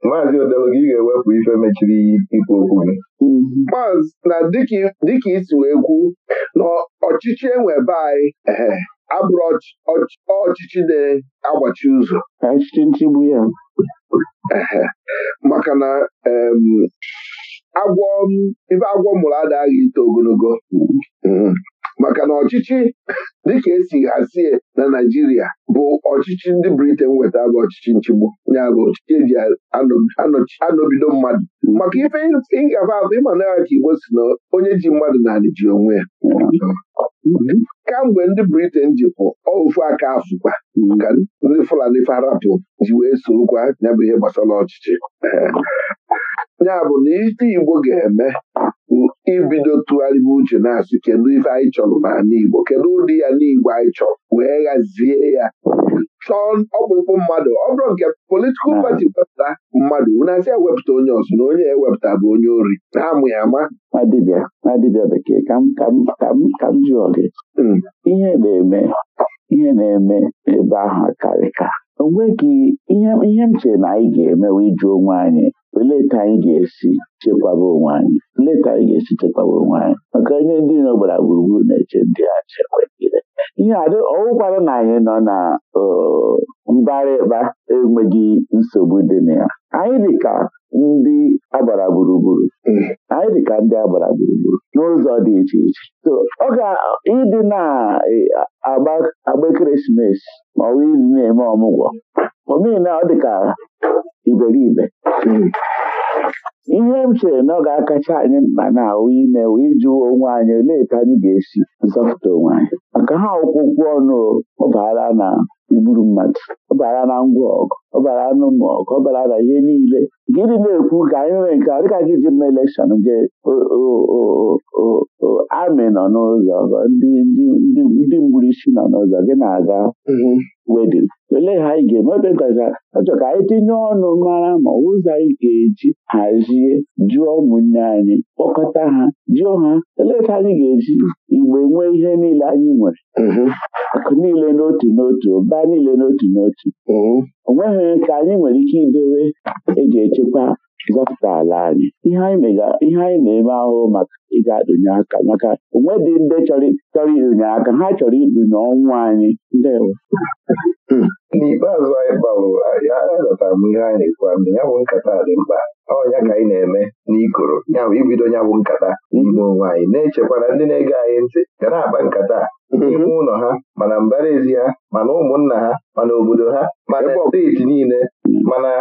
maazị Odelu bụ ife mechiri ikwu okwu gị maazị na dịka isi wee kwu na ọchịchị enwebe anyị abụrụ ọchịchị na-agbachi ụzọ ọchịchị nchigbu ya maka na agwọ ife agwọ mụrụ aghị ito ogologo mm-hmm. Mm-hmm. maka na ọchịchị dịka esi hazie na Naịjirịa bụ ọchịchị ndị Briten weta bụ ọchịchị nchigbu ya ọchịchị eji anọbido mmadụ hmm. maka ife ịgafe afọ ịma na ka Igbo si na onye ji mmadụ naanị ji onwe ya hmm. kamgbe ndị Briten pụ ofu aka afụkwa hmm. ka ndị Fulani farapụ ji wee sorokwa ya bụ ihe gbasara ọchịchị ya bụ na ite Igbo ga-eme ibido tụgharịba uche na-asị kedu ife anyị chọrọ n'ala Igbo kedu ụdị ya n'Igbo anyị chọrọ wee ghazie ya chọọ ọkpụkpụ mmadụ ọ bụrụ nke politikal pati wepụta mmadụ n'asị asị ewepụta onye ọzọ na onye ewepụta bụ onye ori na-amụ ya ama adịbịa bekee ka m jụọ gị hmm. ihe na-eme ihe na-eme ebe ahụ karịka o nweghị ihe m chere na anyị ga-emewe ịjụ onwe anyị leta anyị ga-esi chekwaba onwe anyị leta anyị ga-esi chekwaba onwe anyị maka onye ndị nọ gbara gburugburu na-eche ndị a chekwagide ihe adị ọwụkwara na anyị nọ na mbara ịkpa enweghị nsogbu dị na ya anyị dịka ndị agbara gburugburu anyị ka ndị agbara gburugburu n'ụzọ dị iche iche ọ ga ịdị na-agba e, ekeresimesi ma ọ bụ ịdị na-eme ọmụgwọ omena ọ dịka iberibe ihe m chere na ọ ga-akacha anyị mkpa na ahụ ime wee jụọ onwe anyị olee etu anyị ga-esi zọpụta onwe anyị maka ha ọkwụkwọ ọnụ ọ baara na igburu mmadụ ọ na ngwa ọgụ ọbara anụ ka ọ bara na ihe niile gịnị na-ekwu ka anyị nwere nke a dịka gị ji mma elekshọn gị amị nọ n'ụzọ ndị mgburisi nọ n'ụzọ gị na-aga mhm. wedin olee ha anyị ga-eme ebe nkacha achọ ka anyị tinye ọnụ mara ma ụzọ anyị ga-eji hazie jụọ ụmụnne anyị kpọkọta ha jụọ ha olee ka anyị ga-eji igbe nwee ihe niile anyị nwere mhm. akụ niile n'otu n'otu ụba niile n'otu n'otu mhm. onweghị ka nke anyị nwere ike idowe eji echekwa zọpụta ala anyị ihe anyị na-eme ahụhụ maka ịga adụnye aka maka onwe dị ndị chọrọ ịdụnye aka ha chọrọ idunye ọnwụ anyị n'ikpeazụ anyị gbalụ anyị ghọtara m ihe anyị na-ekwu na ya bụ nkata dị mkpa ọ ya ka anyị na-eme n'ikoro ya bụ ibido ya bụ nkata n'ime onwe anyị na-echekwana ndị na-ege anyị ntị ga na-akpa nkata n'ime mhm. ụlọ ha mana mbara ezi ha mana ụmụnna ha mana obodo ha mana steeti niile mhm. mana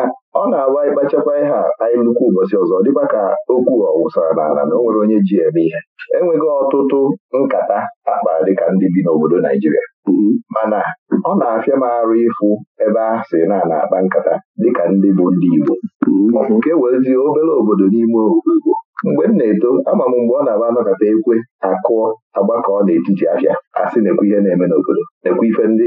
ọ na-agba ịkpachakwa ihe anyị nnukwu ụbọchị ọzọ dịkwa ka okwu ọwụsara n'ala na o nwere onye ji eme ihe enweghị ọtụtụ nkata akpara dịka ndị bi n'obodo Naijiria mm-hmm. mana ọ na-afịa m arụ ịfụ ebe a sị na na-akpa nkata dịka ndị bụ ndị Igbo mm-hmm. nke werezie obere obodo n'ime Igbo mgbe m na-eto ama m mgbe ọ na-aba anọkọta ekwe akụọ agbakọ n'etiti afịa a sị na-ekwu ihe na-eme n'obodo nekwe ife ndị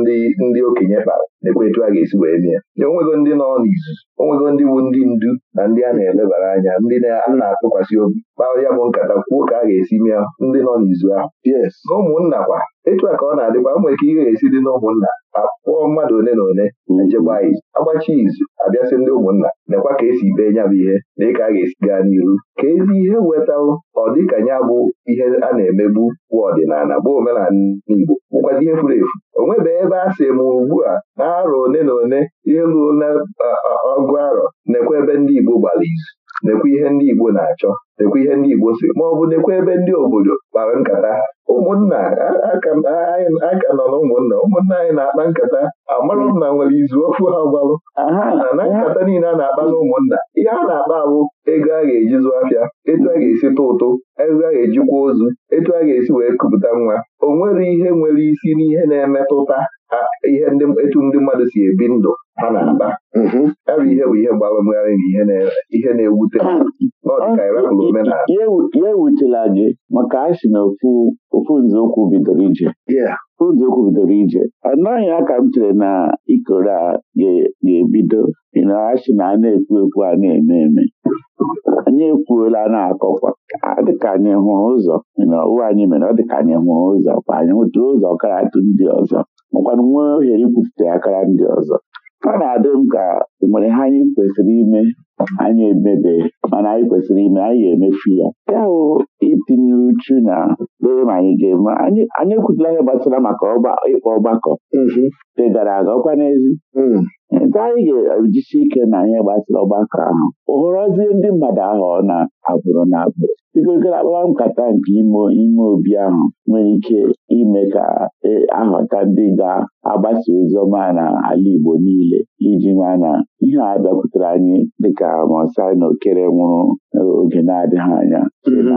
ndị ndị okenye kpara nekwe etu a ga-esi wee mee ya onwego ndị nọ n'izuzu onwego ndị bụ ndị ndu na ndị a na-elebara anya ndị na-atụkwasị obi kpaa ya bụ nkata kwuo ka a ga-esi mee ndị nọ n'izu ahụ na ụmụnna kwa etu a ka ọ na-adịkwa nwere ike ihe ga-esi dị n'ụmụnna. ụmụnna akpụọ mmadụ ole na ole nchekwa izu agbachi izu abịasị ndị ụmụnna nekwa ka esi bee nya bụ ihe na ịka a ga-esi gaa n'iru ka ezi ihe wetaụ ọ dịka ya bụ ihe a na-emegbu bụ ọdịnala bụ omenala Igbo bụkwazi na ihe furu efu o nwebeghị ebe a sị ma ugbu a na arọ one na one ihe ruo na ọgụ arọ nekwa ebe ndị Igbo gbara izu nekwa ihe ndị Igbo na-achọ nekwa ihe ndị Igbo si ma ọ bụ nekwa ebe ndị obodo kpara nkata ha ụmụnna aka nọ na ụmụnna ụmụnna anyị na-akpa nkata amarụ na nwere izu ofu ha gbalụ na nkata niile a na-akpa na ụmụnna ihe a na-akpa abụ ego a ga-eji zụ afịa etu a ga-esi tụ ụtụ ego a ga-ejikwa ozu etu a ga-esi wee kupụta nwa o nwere ihe nwere isi n'ihe na-emetụta ihe etu ndị mmadụ si ebi ndụ ha na-akpa ya bụ ihe bụ ihe mgbanwegharị na ihe na-ewute ya ewutela gị maka anyị si na ofu nzọụkwụ bidoro ije nzọụkwụ bidoro ije ọ naghị aka m chere na ikoro a ga-ebido na a sị na a na-ekwu ekwu a na-eme eme anyị ekwuola na-akọkwa dịka anyị hụrụ ụzọ na ụwa anyị mere ọ dịka anyị hụrụ ụzọ kwa anyị hụtụrụ ụzọ karatụ ndị ọzọ makwanụ nwee ohere ikwupụta akara ndị ọzọ a na-adị m ka nwere ha anyị kwesịrị ime anyị emebe mana anyị kwesịrị ime anyị ga-emefu ya ya hụ itinye uchu na dee ma anyị ga-eme anyị ekwutela ihe gbasara maka ịkpọ ọgbakọ mm-hmm. dị gara aga ọkwa n'ezi mm. nte anyị ga-ejisi ike na ihe gbasara ọgbakọ ahụ oghọrọzie ndị mmadụ ahụ ọ na-abụrụ na abụrụ igogoro agbaa nkata nke ime ime obi ahụ nwere ike ime ka e, ahụta ndị ga-agbasa ozi na ala Igbo niile iji ma na ihe a bịakwutere anyị dịka Mosai na Okere nwụrụ oge na-adịghị anya mm-hmm.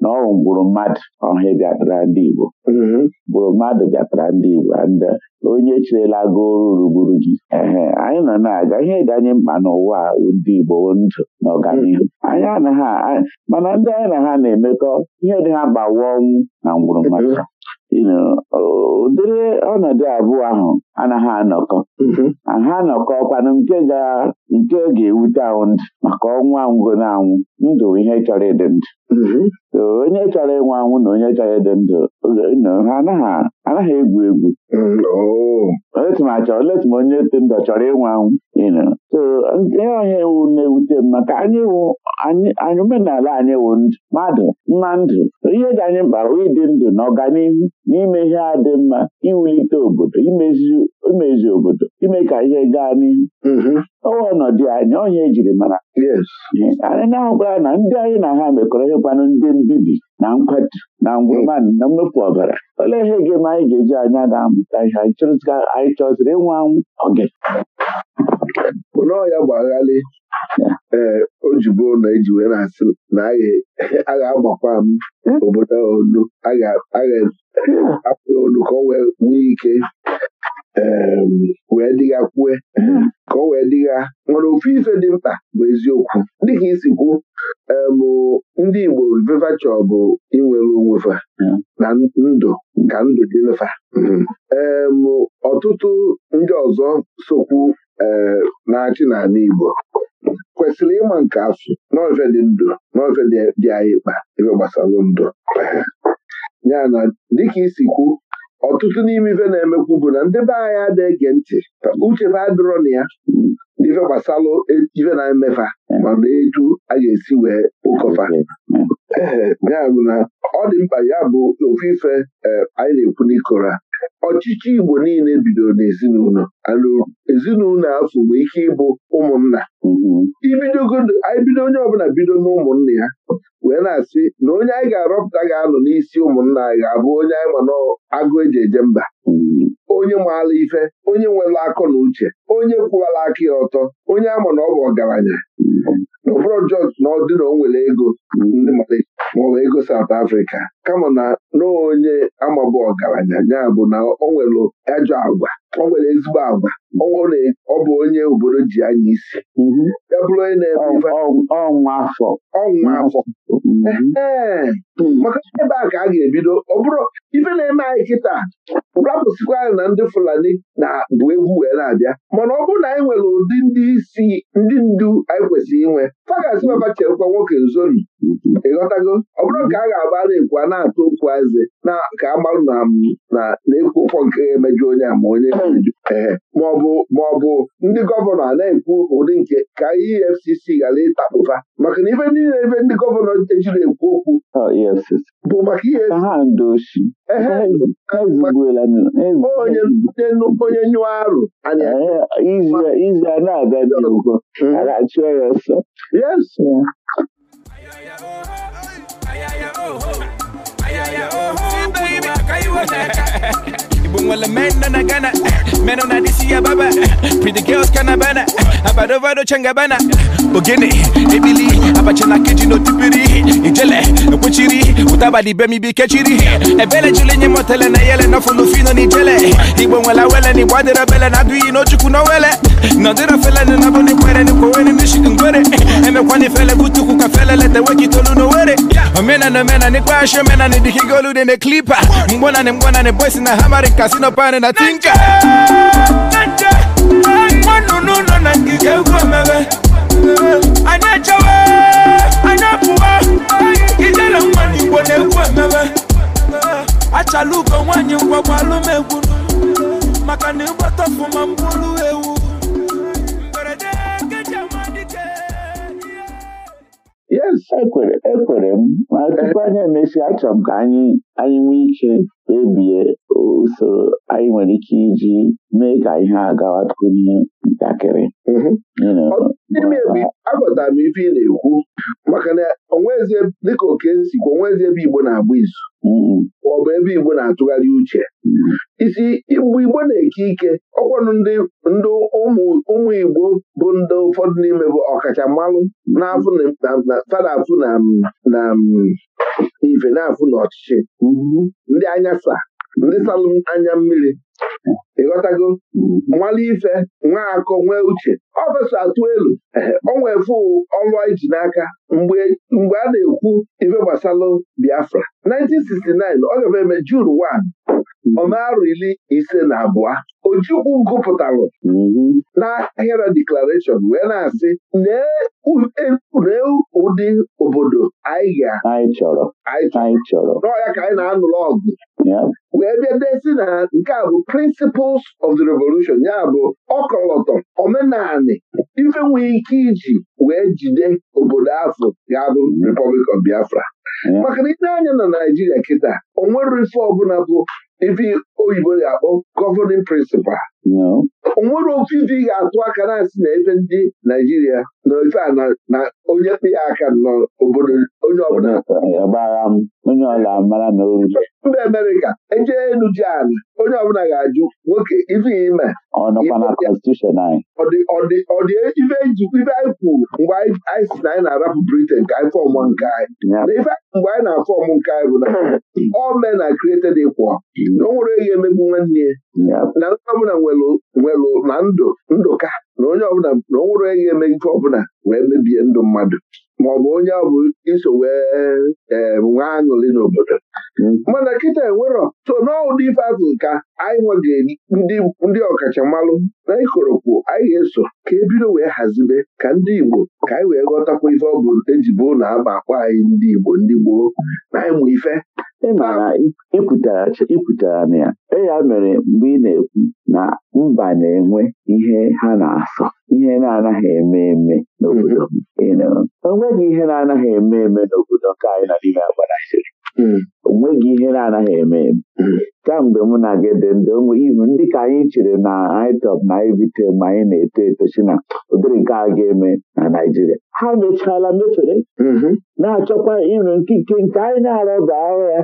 na ọwụ mgbụrụ mmadụ ọhịa bịatara ndị Igbo mgbụrụ mm-hmm. mmadụ bịatara ndị Igbo ndị e, onye cherela go ruru gị ehe anyị nọ na-aga ihe dị anyị mkpa n'ụwa ndị Igbo ndụ na ọganihu anyị anaghị mana ndị anyị na ha na-emekọ ihe dị ha gbawa ọnwụ na ngwụrụ maka ụdịrị ọnọdụ abụọ ahụ anaghị anọkọ mm-hmm. ha anọkọ kwanụ nke ga-ewute ahụ ndụ maka ọnwụ anwụgo na anwụ ndụ ihe chọrọ ịdị ndụ mm-hmm. onye chọrọ ịnwụ anwụ na onye chọrọ ịdị ndụ ha anaghị egwu egwu mm, oh. oletum onye dị ndụ chọrọ ịnwụ anwụ so ihe onye wu na-ewute m maka anyị omenala anyị wu mmadụ mma ndụ ihe dị anyị mkpa ịdị ndụ na ọganihu n'ime ihe a dị mma iwulite obodo imezi obodo ime ka ihe gaa n'ihu mm-hmm. ọwa ọnọdụ anyị onye ejiri mara anyị na-ahụkwara na ndị anyị na ha mekọrọ ịkwanụ ndị mbibi na nkwatu na ngwụmadụ na mmefu ọbara olee ihe ga-eme anyị ga-eji anya na-amụta ihe anyị chọziri ịnwe anwụ oge ya bụ ee o jibo na eji wee na-asị na a ga-agbakwa m hmm? obodo onu a ga-apụ hmm. onu ka o wee nwee ike Um, wee dịghakwue mm-hmm. ka o wee dịgha nwere ofu ife dị mkpa bụ eziokwu dịka isi kwu um, ndị Igbo vevacha bụ inwere onwefa na ndụ ka ndụ dịfa mm-hmm. um, ọtụtụ ndị ọzọ sokwu na-achị n'ala Igbo kwesịrị ịma nke asụ n'ofe dị ndụ n'ofe dị anyị mkpa ebe gbasara ndụ ya na dịka isi kwu ọtụtụ n'ime ife na-emekwu bụ na ndị be anyị adịghị ege ntị uche uchebe adịrọ na ya ife gbasalụ ife na-emefa mana etu a ga-esi wee ụkọfa mm. ya bụ na ọ dị mkpa ya bụ ofufe ife eh, anyị na-ekwu n'ikora ọchịchị Igbo niile bidoro n'ezinụlọ ezinụlọ afọ bụ ike ịbụ ụmụnna mm-hmm. anyị bido onye ọbụla bido n'ụmụnna ya wee na-asị na onye anyị ga-arọpụta ga-anọ n'isi ụmụnna anyị ga-abụ onye anyị ma n'agụ eji eje mba mm-hmm. onye maala ife onye nwere akọ na uche onye kwụwara aka ya ọtọ onye ama na ọ bụ ọgaranya na ọ jọs na ọ dị na o nwere ego ndị maọbụ ego South Africa kama na n'onye amabụ ọgaranya ya bụ na ọ nwere ajọ agwa ọ nwere ezigbo agwa ọ bụ onye obodo ji anya isi mhm. ya bụrụ onye na-eme ọnwa afọ ọnwa afọ mhm. hmm. maka ebe a ka a ga-ebido ọ bụrụ ife na-eme anyị kịta rapụsịkwa anyị na ndị Fulani na bụ egwu wee na-abịa mana ọ bụrụ na anyị nwere ụdị ndị isi ndị ndu anyị kwesịrị inwe fagasị chekwa nwoke nzori ịghọtago ọ bụrụ nke a ga-agba na-ekwu a na-atụ okwu eze na ka agbalụ na na na-ekwu ụkwọ nke ga-emeju onye a ma onye ee maọbụ ndị gọvanọ a na-ekwu ụdị nke ka EFCC e ghara ịtakpụba maka na ife niile ebe ndị gọvanọ ejiri ekwu okwu e bụ maka ihe onye nyụọ arụ izu na ya Ayaya, oh, ho. Ayaya, oh, ho. Baby, can you Igbo nwere men nọ gana Ghana eh. men nọ na disi ya baba eh. pretty girls ka na bana eh. abadovado changabana ogene ebili abacha na keji n'otipiri ijele ekwechiri ụtabadị be mibi kechiri ebele jili nye motele na yele nọfụlụ fino n'ijele Igbo nwere wele na Igbo adịrọ bele na adụghị n'ochukwu n'owele nọdịrọ fele na bụ n'ikwere n'ikwowe n'ishikungwere emekwa n'ifele butukwu ka fele leta wekitolu n'owere omenana omena n'ikpeashi omena na idikigo olu dị na klipa mgbọnanị mgbọnanị boys na hamarin kasino pani na tinka nwa nnụnụ nọ na ngige ugwu mere anyị echewe anyị apụwa ijele nwa n'igbo na-egwu emere achala ugo nwaanyị ngwagwa alụmegwu maka na ịgbata ọfụma mkpụrụ yes ekwere m ma tupu anyị emesịa achọrọ m ka anyị anyị nwee ike kpebie usoro anyị nwere ike iji mee ka ihe a gawakwuo ihe ntakịrị mhm. aghọtara m ife ị na-ekwu maka na onwezie dịka oke nsikwa onwezie ebe Igbo na-agba izu ọ bụ ebe Igbo na-atụgharị uche hmm. isi mgbe Igbo na-eke ike ọkwanụ ndị ụmụ Igbo bụ ndị ụfọdụ n'ime bụ ọkacha mmalụ fada afụ na ife na-afụ n'ọchịchị hmm. ndị anya saa, ndị salụ anya mmiri hmm. ịghọtago nwale ife nwa akọ nwee uche ọ atụ elu ọ nwefu ọlụ n'aka mgbe a na-ekwu ife gbasalụ Biafra 1969 ọ gafe eme June 1 mm-hmm. ọmarọ iri ise na abụọ Ojukwu gụpụtalụ mm-hmm. n'ahịa deklarashọn wee na-asị e, lee ụdị obodo anyị ga anyị chọrọ n'ọya ka anyị na-anụrụ ọgụ wee bịa desi na nke a bụ principles of the revolution ya bụ ọkọlọtọ omenani ife nwee ike iji wee jide obodo afọ ga bụ Republic of Biafra maka na ile anya na Naijiria kịta onwere ife ọbụla bụ ife oyibo ga-akpọ governing principle o nwere ofe ife ị ga-atụ aka na-asị na ebe ndị Naijiria na ofe a na onye kpe ya aka nọ obodo onye ọbụla mba Amerịka eje elu ji ala onye ọbụla ga-ajụ nwoke ife ime ife anyị kwuru mgbe anyị si na anyị na-arapụ Britain ka anyị fọọmụ nke anyị na ife mgbe anyị na-afọọmụ nke anyị bụ na ọ mee are created equal na o nwere ihe emegbu nwanne na ndị ọbụla nwelụ na ndụ ndụka na onye ọbụla na o nwere onye eme ife ọbụla wee mebie ndụ mmadụ ma ọ bụ onye ọ bụ iso wee nwee aṅụrị n'obodo mana kịta enwerọ so n'ụdị ife azụ ka anyị nweghị ndị ọkachamalụ na ikorokwu anyị ga-eso ka ebido wee hazibe ka ndị Igbo ka anyị wee ghọtakwa ife ọ bụ eji bụ na aba akpọ anyị ndị Igbo ndị gboo na mụ ife ị mara ikwutara na ya e ya mere mgbe ị na-ekwu na mba na-enwe ihe ha na-asọ ihe na-anaghị eme eme n'obodo onweghị ihe na-anaghị eme eme n'obodo nke anyị na n'ime agbanaisiri hmm. onweghị ihe na-anaghị eme eme hmm. mgbe mụ na gị dị ndụ ụmụ ihu ndị ka anyị chere na anyị na ebite ma anyị na-eto eto si na ụdịrị nke a ga-eme na Naịjirịa ha mechala mefere mm-hmm. na-achọkwa ịrụ nkike nke anyị na-arọba ahụ ya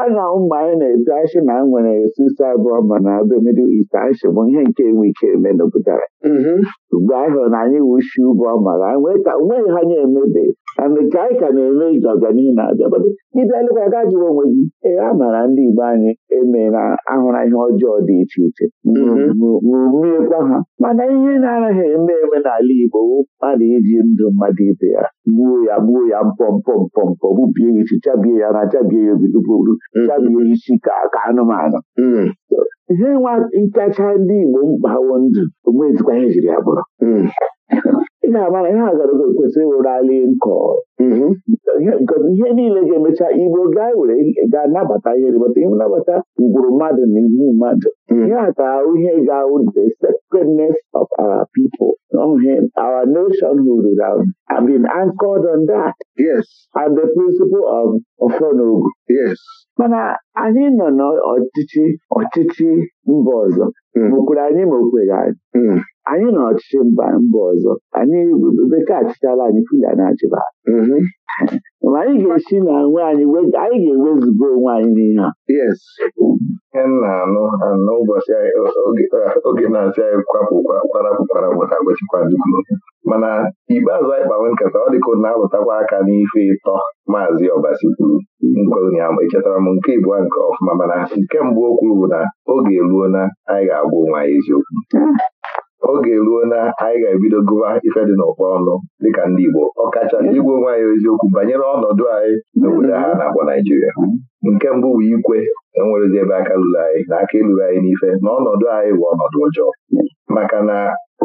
a na ụmụ anyị na-eto asị na nwere sisa abụọ ma na be Middle East bụ ihe nke enwe ike eme n'obodo anyị. Mm-hmm. mgbe na anyị wushi ụbọ mara onweghị ha nye emebi. ka anyị ka na-eme iji ọganihu na-abịa ịbịa lekwa ga jụrụ onwe gị ee a maara ndị Igbo anyị eme na ahụra ihe ọjọọ dị iche iche ruruekwa ha mana ihe na-anaghị eme eme n'ala Igbo mmadụ iji ndụ mmadụ ibe ya gbuo ya gbuo ya mpọmpọmpọmpọ gbubie ya isi chabie ya na chabie ya obidogburu chabie isi ka ka anụmanụ ihe nwa ịkacha ndị Igbo mkpawo ndụ onwezikwa ihe jiri ya bụrụ na-agba ihe mm-hmm. a gwara gị kwesịrị ịwụrali nkọ ihe niile ga-emecha igbo gaa were ga-anabata ihe rịbata ihe nabata ugboro mmadụ na iwu mmadụ ihe a mm. ihe ga-ahụ the sacredness of our people our nation nationhood have been anchored on that yes and the principle of ofonogu yes mana anyị nọ n'ọchịchị ọchịchị mba ọzọ mokwere anyị ma okweghị anyị anyị na ọchịchị mba mba ọzọ anyị bekee achịchala anyị fulya na-achịba anyị mm-hmm. ga-esi na nwe anyị anyị ga-ewezuga onwe anyị n'ihe a yes na anụ anụ ụbọchị oge na-asị anyị kwapụ kwarapụ kwarapụ ka gbochikwazikwuru mana ikpeazụ anyị kpawe nkata ọ dịka na-alụtakwa aka n'ife ịtọ maazị ọbasi kwuru echetara m nke ịbụọ nke ọfụma mana nke mbụ o kwuru bụ na oge eruo na anyị ga-agwa onwe anyị eziokwu ah. oge ruo na anyị ga-ebido gụba ife dị n'ụkpọ ọnụ dịka ndị Igbo kacha igwe onwe anyị eziokwu banyere ọnọdụ anyị n'obodo ha mm-hmm. na-akpọ Naijiria nke mbụ bụ ikwe enwerezi ebe aka lụrụ anyị na aka ịlụrụ anyị n'ife na ọnọdụ anyị bụ ọnọdụ ọjọọ maka na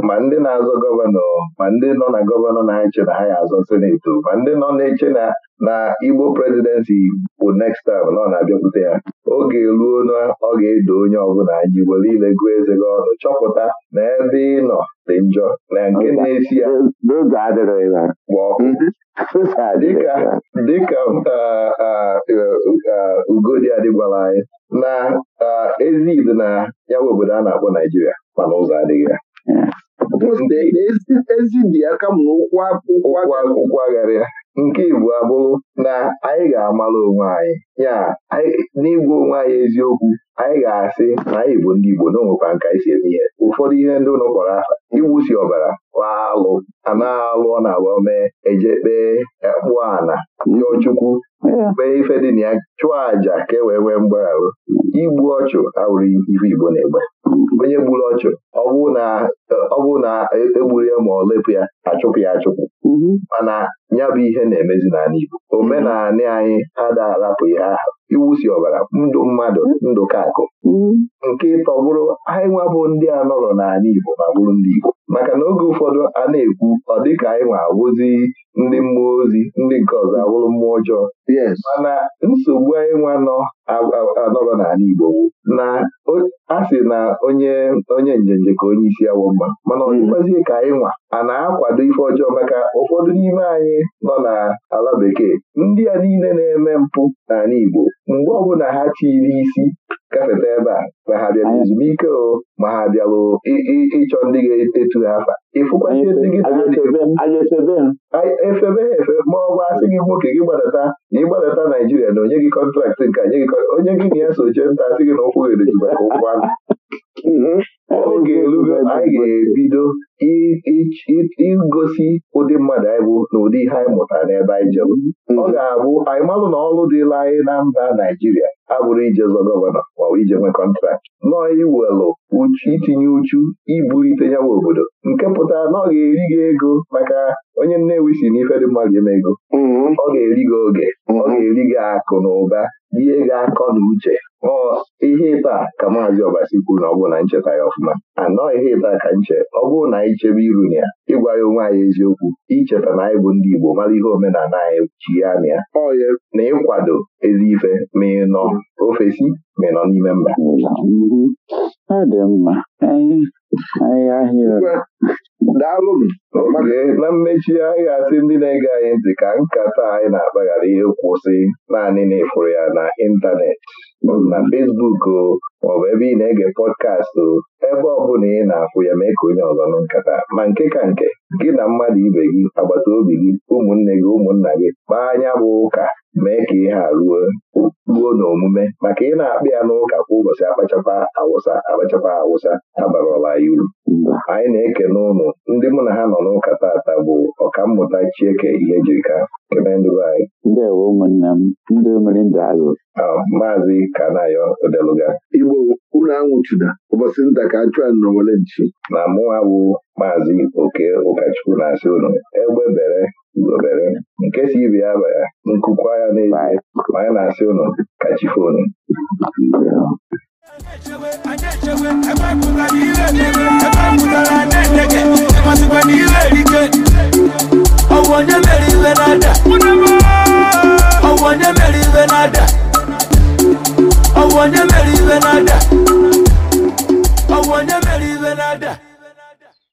ma ndị na-azọ gọvanọ ma ndị nọ na gọvanọ na-eche na ha ya azọ seneti ma ndị nọ na-eche na na Igbo prezidensi bụ next time na ọ na-abịakwute ya oge ruo na ọ ga-edo onye ọbụla anyị were ile gụọ eze gị ọnụ chọpụta na ebe ị nọ dị njọ na nke na-esi ya gba ọkụ dịka uh, uh, uh, Ugodi adịgwala anyị na ezi Igbo na yawa obodo a na-akpọ Naijiria mana ụzọ adịghị ya ezi dị aka m ụkwụ agharịa nke Igbo abụrụ na anyị ga-amara onwe anyị ya n'igwe onwe anyị eziokwu anyị ga-asị na anyị bụ ndị Igbo na onwekwa nka isi eme ihe ụfọdụ ihe ndị ụlọ kpọrọ aha igbusi ọbara alụ anaghị na-alụ ọ na-agba mee eje kpee ana ndị mm. Chukwu mee ife dị na ya chụọ àjà ka e wee nwee mgbagharụ igbu ọchụ awụrụ ife Igbo na-egbe mm. onye gburu ọchụ ọ bụrụ na egburu e ya ma ọ lepụ ya achụpụ ya mm-hmm. achụpụ mana ya bụ ihe na-emezi n'ala Igbo omenala anyị adaarapụghị aha iwusi ọbara ndụ mmadụ ndụ kakụ mm-hmm. nke tọgburu anyị nwabụ ndị a nọrọ n'ala Igbo ma bụrụ ndị Igbo maka na oge ụfọdụ a na-ekwu ọ dịka anyị nwa awụzi ndị mmụọ ozi ndị nke ọzọ awụrụ mmụọ ọjọọ mana nsogbu anyị nwa nọ anọrọ n'ala Igbo na a sị na onye onye njenje ka onye isi awọ mma mana ọdịkwazie hmm. ka anyị nwa a na-akwado ife ọjọọ maka ụfọdụ n'ime anyị nọ n'ala bekee ndị a niile na-eme mpụ n'ala Igbo mgbe ọbụla ha chiri isi gafeta ebe a ma ha bịara ezumike o ma ha bịara ịchọ ndị ga-etu ha mkpa ịfụkwazi efebe ha efe ma ọ gwa asị gị nwoke gị gbadata na ịgbadata Naijiria na onye gị kọntraktị nke onye gị na ya so jee nta asị gị na ụkwụ ga-edozi maka ụkwụ anụ oge elugo anyị ga-ebido igosi ụdị mmadụ anyị bụ na ụdị ihe anyị mụtara n'ebe anyị jere ọ hmm. ga-abụ anyị malụ na ọrụ dịla anyị na mba Naijiria abụrụ ijezọ gọvanọ ma ije nwe kọntraktị nọọ iwelụ itinye uchu ibulite ya obodo nke pụtara na ọ ga-eri gị ego maka onye Nnewi si ife dị mmadụ eme ego hmm. ọ ga-eri gị oge ọ ga-eri gị akụ na ụba ihe ga-akọ na uche ọ ihe ịta ka maazị ọbasi kwuru na ọ bụ na ncheta ya ọfụma anọọ ihe ịta ka nche ọ bụrụ na anyị chebe iru na ya ịgwa ya onwe anyị eziokwu icheta na anyị bụ ndị Igbo mara ihe omenala anyị ji ya na ya na ịkwado ezi ife ma ị nọ ofesi ma ị nọ n'ime mba dị mma anyị ahịa daalụnụ na mmechi anyị ga-asị ndị na-ege anyị ntị ka nkata anyị na akpaghara ihe ihe kwụsị naanị na efuru ya na ịntanetị na fesbuk o bụ ebe ị na-ege pọdkastị o ebe ọ bụla ị na-afụ ya mee ka onye ọzọ nụ nkata ma nke ka nke gị na mmadụ ibe gị agbata obi gị ụmụnne gị ụmụnna gị kpaa anya bụ ụka mee ka ihe a ruo ruo n'omume maka ị na-akpị ya n'ụka kwa ụbọchị akpachakwa awụsa akpachakwa awụsa abarọla ya uru anyị na-ekene ụnụ ndị mụ na ha nọ n'ụka taata bụ ọkammụta Chieke ihe jirika anyị. ndị omere maazị Kanayo Odeluga Igbo unu anwụchụda ụbọchị nta ka a nọwere nchi na mụnwa bụ maazị Oke Ụka Okachukwu na-asị egbe bere ugobere nke si ibe ya baya nkụkwa ya na-asị ụnụ kachifo ụnụ mere onye mere iwe na-ada